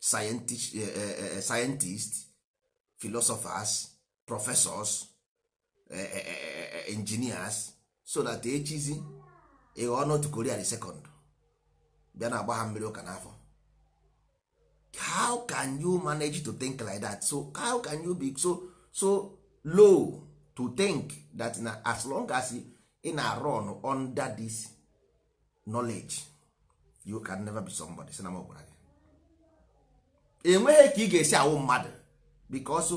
Speaker 1: scientist, uh, uh, eh, scientists philosophers professors Eh, eh, eh, engineers so that echizi ịghọọ not Korea the second bịa na agba ha mmiri ụka n'afọ how can you manage to think like that so how can you be so so low to think that na as long as ị na-run under this knowledge you can never be somebody sị na m gwara gị enweghị ka ị ga-esi awụ mmadụ because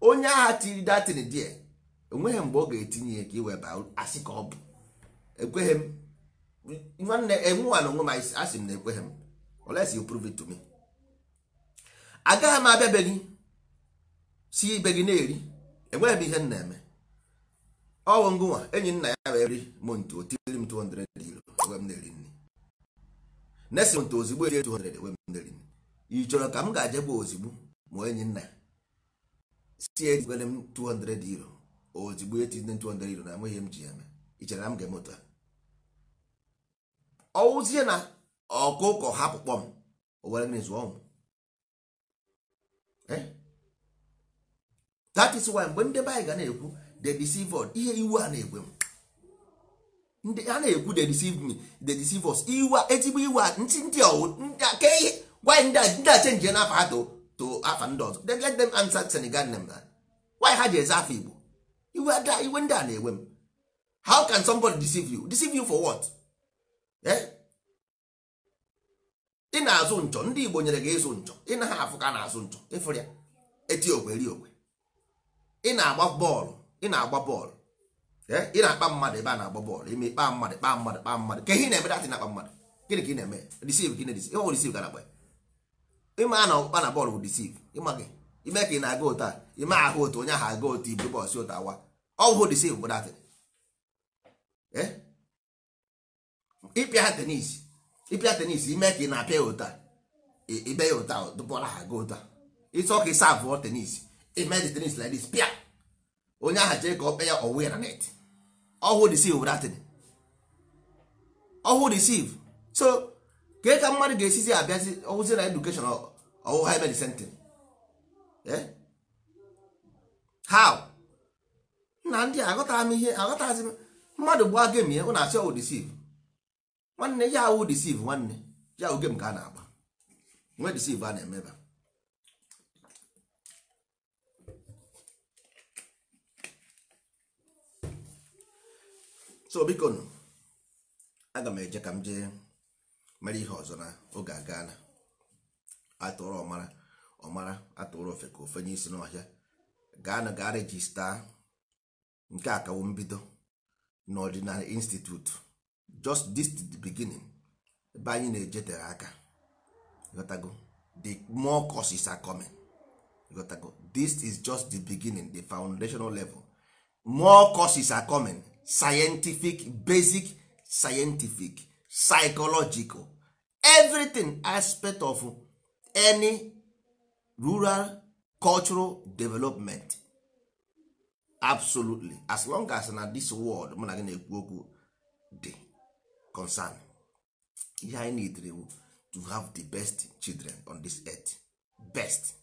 Speaker 1: onye agha tiri datin die onweghị mgbe ọ ga-etinye ya ka iwe baa asị ka ọ bụ ekweghị m e, nwanne enwewana onwe m asị m na ekweghị m unless you prove it to me agaghị m abịa be gị si ibe gị na-eri enweghị m ihe m na-eme ọwụ ngụnwa enyi nna ya wee ri m ntu otiri m 200 euro ewe m na-eri nri nesi ntu ozigbo eri 200 ewe m na nri ị chọrọ ka m ga-ajegbu ozigbo ma enyi nna ya si ejikwere m 200 euro ozigbo etinye 200 euro na enweghị m ji ya eme ichere na m ga-eme otu a ọwụzie na ọkụkọ hapụ kpọm owere mmiri zụọ ụmụ eh? that is why mgbe ndị be anyị ga na-ekwu they deceive ihe iwu a na-egwe m ndị a na-ekwu they deceive me they deceive us iwu ezigbo iwu a ntị ndị ọwụ ke ihe gwa ndị a ndị a chenjie n'afa ha to to afa ndị ọzọ let them answer Senegal name why ha ji eze afọ Igbo iwe ada iwe ndị a na-ewe m how can somebody deceive you deceive you for what eh? ị na-azụ nchọ ndị Igbo nyere gị ịzụ nchọ ị naghị afụ ka na-azụ nchọ ịfụrụ ya eti okwe ri okwe ị na-agba bọọlụ ị na-agba bọọlụ eh? ị na-akpa mmadụ ebe a na-agba bọọlụ ime kpa mmadụ kpa mmadụ kpa mmadụ ka ihe na-eme datị na-akpa mmadụ gịnị ka ị na-eme deceive gịnị deceive ịma na ọkpa na bọọlụ bụ deceive ịma gị ime ka ị na-aga ụta ime ahụ ụta onye ahụ aga ụta ibu bọs ụta wa ọhụụ dị save dat eh? ịpịa tenis ịpịa tenis ime ka ị na-apịa ya ụta ibe ya ụta dụbọla ha aga ụta ịsọ ka ịsa abụọ tenis ime dị tenis like this pịa onye ahụ jee ka ọ kpe ya ọwụ ya na net ọhụụ dị save dat ọhụụ dị save so ka ka mmadụ ga-esizi abịazi ọwụzi na edukeshọn ọwụ ha Eh? how na ndị aghọtara m ihe aghọtazi m mmadụ gbaa gem ya na asị ọwụ disiv nwanne ya awụ disiv nwanne ya awụ gem ka a na-agba nwe disiv a na-emeba so biko nụ aga m eje ka m jee mere ihe ọzọ na oge aga na atụrụ ọmara ọmara atụrụ ofe ka ofe nye isi n'ọhịa gaa na gaa rejista nke a kawo mbido n'ọdịnala institute just this the beginning ebe anyị na-ejetere aka gotago the more courses are coming gotago this is just the beginning the foundational level more courses are coming scientific basic scientific psychological everything aspect of any rural cultural development absolutely as long as na this world mụ na gị na-ekwu okwu concern ihe anyị needre to have the best children on this earth best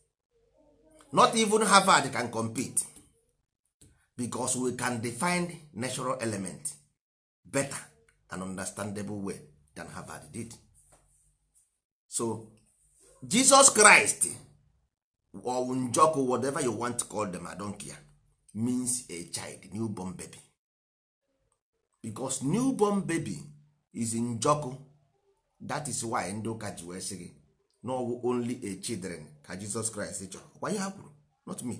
Speaker 1: not even Harvard can compete because we can define natural element better and understandable way than Harvard did so Jesus Christ or njọkụ whatever you want to call them i don't care means a child newborn baby because newborn baby is njọkụ that is why ndị ụka ji wee sị gị na ọwụ only a children ka Jesus Christ chọrọ gwa ya kwuru not me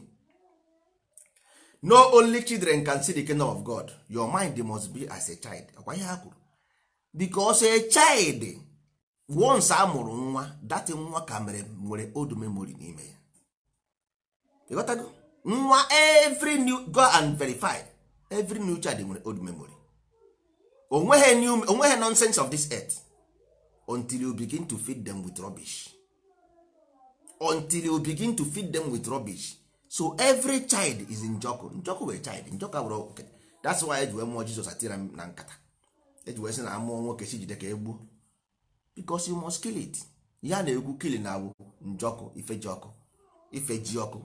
Speaker 1: no only children can see the kingdom of God your mind must be as a child gwa ya kwuru because a child once amụrụ nwa that nwa ka mere nwere old memory n'ime ya ịghọtago nwa every new go and verify every new child nwere old memory onweghị new onweghị nonsense of this earth until you begin to feed them with rubbish until you begin to feed them with rubbish so every child is njọkụ njọkụ wee child njọkụ abụrụ okay. that's why ji wee mụọ Jizọs atira m na nkata ji wee sị na amụọ nwoke si jide ka egbuo because you must kill it ya na-egwu kili na awụ njọkụ ife ji ọkụ ife ji ọkụ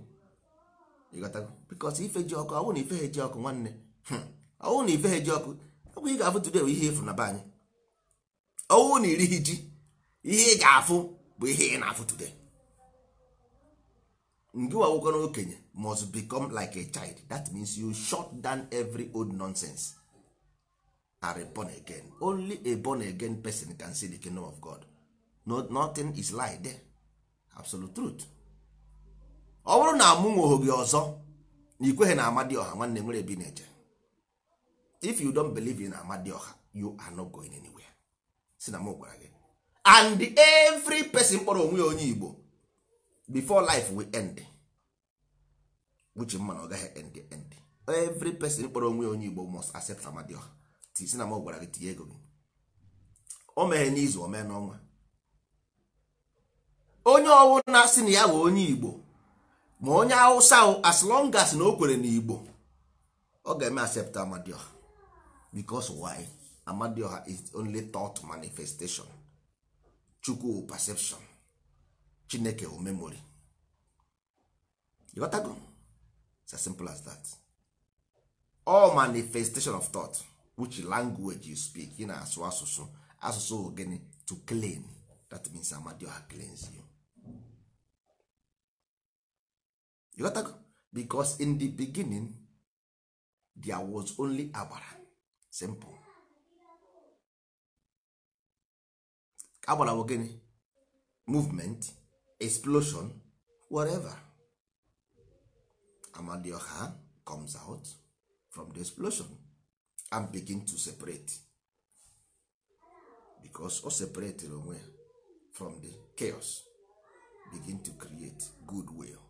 Speaker 1: ịghọtago bikos ife ji ọkụ ọwụ na ife ha ji ọkụ nwanne ọwụ na ife ha ji ọkụ ọgwụ ị ga-afụ today bụ ihe efu na be anyị ọwụ na iri ji ihe ị ga-afụ bụ ihe ị na-afụ today ngị wawụkọ na okenye must become like a child that means you shut down every old nonsense are born again only a born again person can see the kingdom of God no, nothing is lie there absolute truth ọ bụrụ na amụ nwoho gị ọzọ na ikweghị na ọha nwanne nwere ebi na-eje if you don't believe in ọha, you are not going anywhere si na m gwara gị and every person kpọrọ onwe ya onye Igbo before life will end which mma na ọ gaghị end end every person kpọrọ onwe ya onye Igbo must accept ọha. si na m gwara gị tinye ego gị o meghe n'izu o mee n'ọnwa onye ọwụ na-asị na ya bụ onye Igbo ma onye awụsa as long as na o kwere igbo ọ ga-eme accept amadioha because why amadioha is only thought manifestation chukwu perception chineke o memory ịghọtago it's as simple as that all manifestation of thought which language you speak ị na-asụ asụsụ asụsụ gịnị to claim that means amadioha claims you ịghọtago because in the beginning there was only agbara simple agbara bụ gịnị movement explosion whatever amadioha comes out from the explosion and begin to separate because o separated onwe from the chaos begin to create good will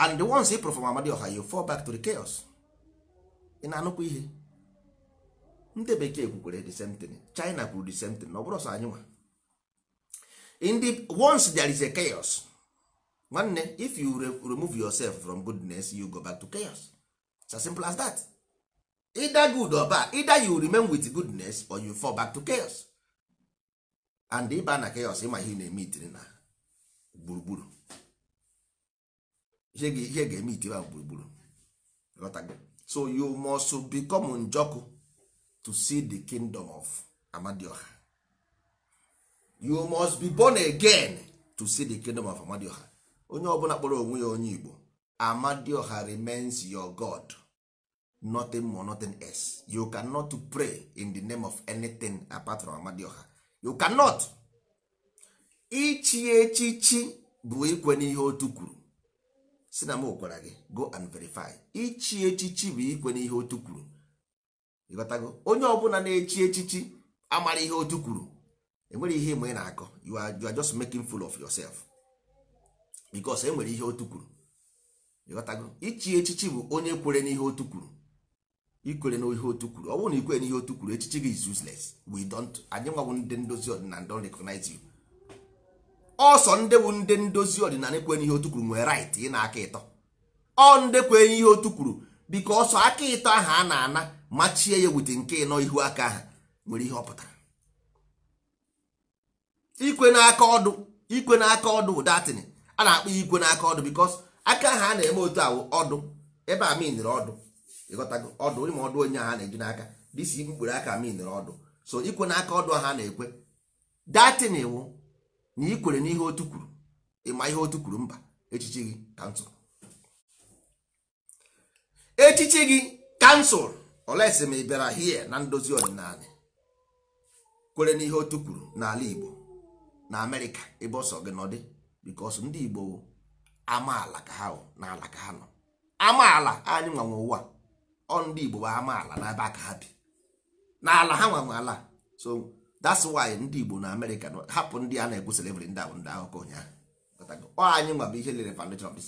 Speaker 1: and the ones perform from ọha you fall back to the chaos ị na-anụkwa ihe ndị bekee kwukwere the same thing China kwuru the same thing na ọ bụrụ sọ anyị nwa in the once there is a chaos nwanne if you remove yourself from goodness you go back to chaos it's as simple as that either good or bad either you remain with goodness or you fall back to chaos and ịba na chaos ịma ihe na-eme itiri na gburugburu ihe ga-eme itiwa gburugburu so you must become njoku to see the kingdom of amadioha you must be born again to see the kingdom of amadioha onye ọbụla kpọrọ onwe ya onye igbo amadioha remains your god nothing more nothing else you cannot pray in the name of anything apart from amadioha you cannot ichi echichi bụ ikwe n'ihe otu kwuru si na m gwara gị go and verify ichi echichi bụ ikwe n'ihe otu kwuru ịghọtago onye ọbụla na-echi echichi amara ihe otu kwuru enwere ihe ịmụ ị na-akọ you are just making full of yourself because enwere ihe otu kwuru ịghọtago ichi echichi bụ onye kwere n'ihe otu kwuru ikwere n'ihe otu kwuru ọ bụrụ na ikwere n'ihe otu kwuru echichi gị is useless we don't anyị nwabụ ndị ndozi ọdịnala don recognize you ọsọ ndewu ndị ndozi ọdịnala kwenye ihe otu kwuru nwere right ị na aka ịtọ ọ ndị kwenye ihe otu kwuru biko ọsọ aka ịtọ ahụ a na-ana machie ya wute nke ịnọ ihu aka ahụ nwere ihe ọ pụtara ikwe n'aka ọdụ ikwe n'aka ọdụ datin a na-akpọ ikwe n'aka ọdụ bikos aka ahụ a na-eme otu ahụ ọdụ ebe a minere ọdụ ịghọtago ọdụ ịma ọdụ onye ahụ na-eji n'aka dịsi mkpụrụ aka minere ọdụ so ikwe n'aka ọdụ ahụ a na-ekwe datin wụ na ị kwere n'ihe otu kwuru ịma ihe otu kwuru mba echichi gị kansụl echichi gị kansụl olesi ma ị bịara hie na ndozi ọdịnala kwere n'ihe otu kwuru n'ala Igbo na Amerịka ebe ọsọ gị nọdị bikos ndị Igbo amaala ka ha n'ala ka ha nọ amaala anyị nwanwe ụwa ọ ndị Igbo bụ amaala n'ebe ka ha bi n'ala ha nwanwe ala so that's why ndị Igbo na Amerịka hapụ ndị a na-ekwu slavery ndị ahụ ndị akụkọ ụnyaahụ anyị nwa ihe lere foundation of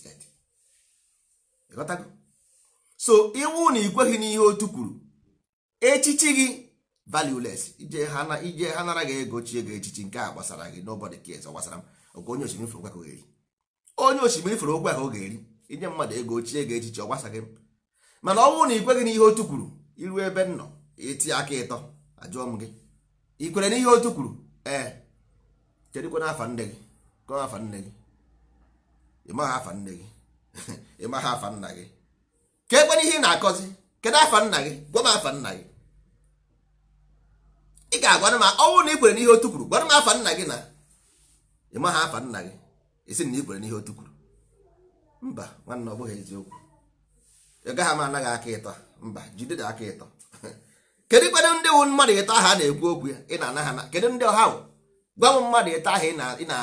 Speaker 1: so iwu na ikweghị n'ihe otu kwuru echichi gị valueless ije ha ego chie gị echichi nke a gbasara gị nobody cares gbasara m onye osimiri ahụ ga-eri inye mmadụ ego na otu kwuru iru ebe m nọ aka ịtọ ajụọ m gị ị kwere n'ihe otu kwuru ee kedụkwana afa nne gị kọọ afa nne gị ịmaghị afa nne gị [laughs] ịmaghị afa nna gị ka ekwere ihe ị na-akọzi kedụ afa nna gị gwa m afa nna gị ị ga-agwana m ọnwụ na ị kwere n'ihe otu kwuru gwara m afa nna gị na ịmaghị afa nna gị esi na ị kwere n'ihe otu kwuru mba nwanne ọ bụghị eziokwu ị gaghị m anaghị aka ịtọ mba jide aka ịtọ [laughs] kedu ikpedo ndị wụ mmadụ ịta aha na-ekwu okwu ya ị na-ana ha kedu ndị ọha gwa m mmadụ ịta aha ị na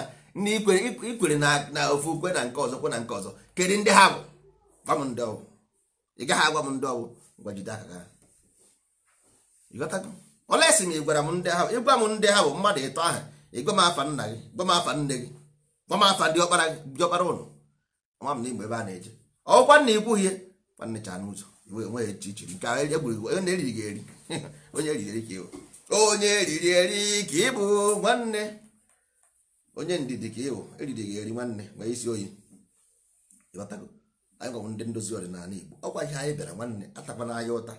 Speaker 1: ikwere na ofu ukwe na nke ọzọ kwe na nke ọzọ kedu ndị ha bụ gwa m ndị ọwụ ị gaghị agwa m ndị ọwụ gwajide aka gị olesi m ịgwara m ndị ha ịgwa m ndị ha bụ mmadụ ịtọ aha ịgwa m afa nna gị gwa m afa nne gị gwa m afa dị ọkpara ụnụ ọma m na igbo ebe a na-eje ọkwa nna ikwughị ya nwanne cha n'ụzọ nwe echichi nke egwuregwu na eriri ga-eri onye eriri ka ịwụ onye eriri eri ka ịbụ nwanne onye ndidi ka ịwụ eriri ga-eri nwanne nwee isi oyi ịghọtago anyị gwanwụ ndị ndozi ọdịnala Igbo ọkwa ihe anyị bịara nwanne atakwana anyị ụta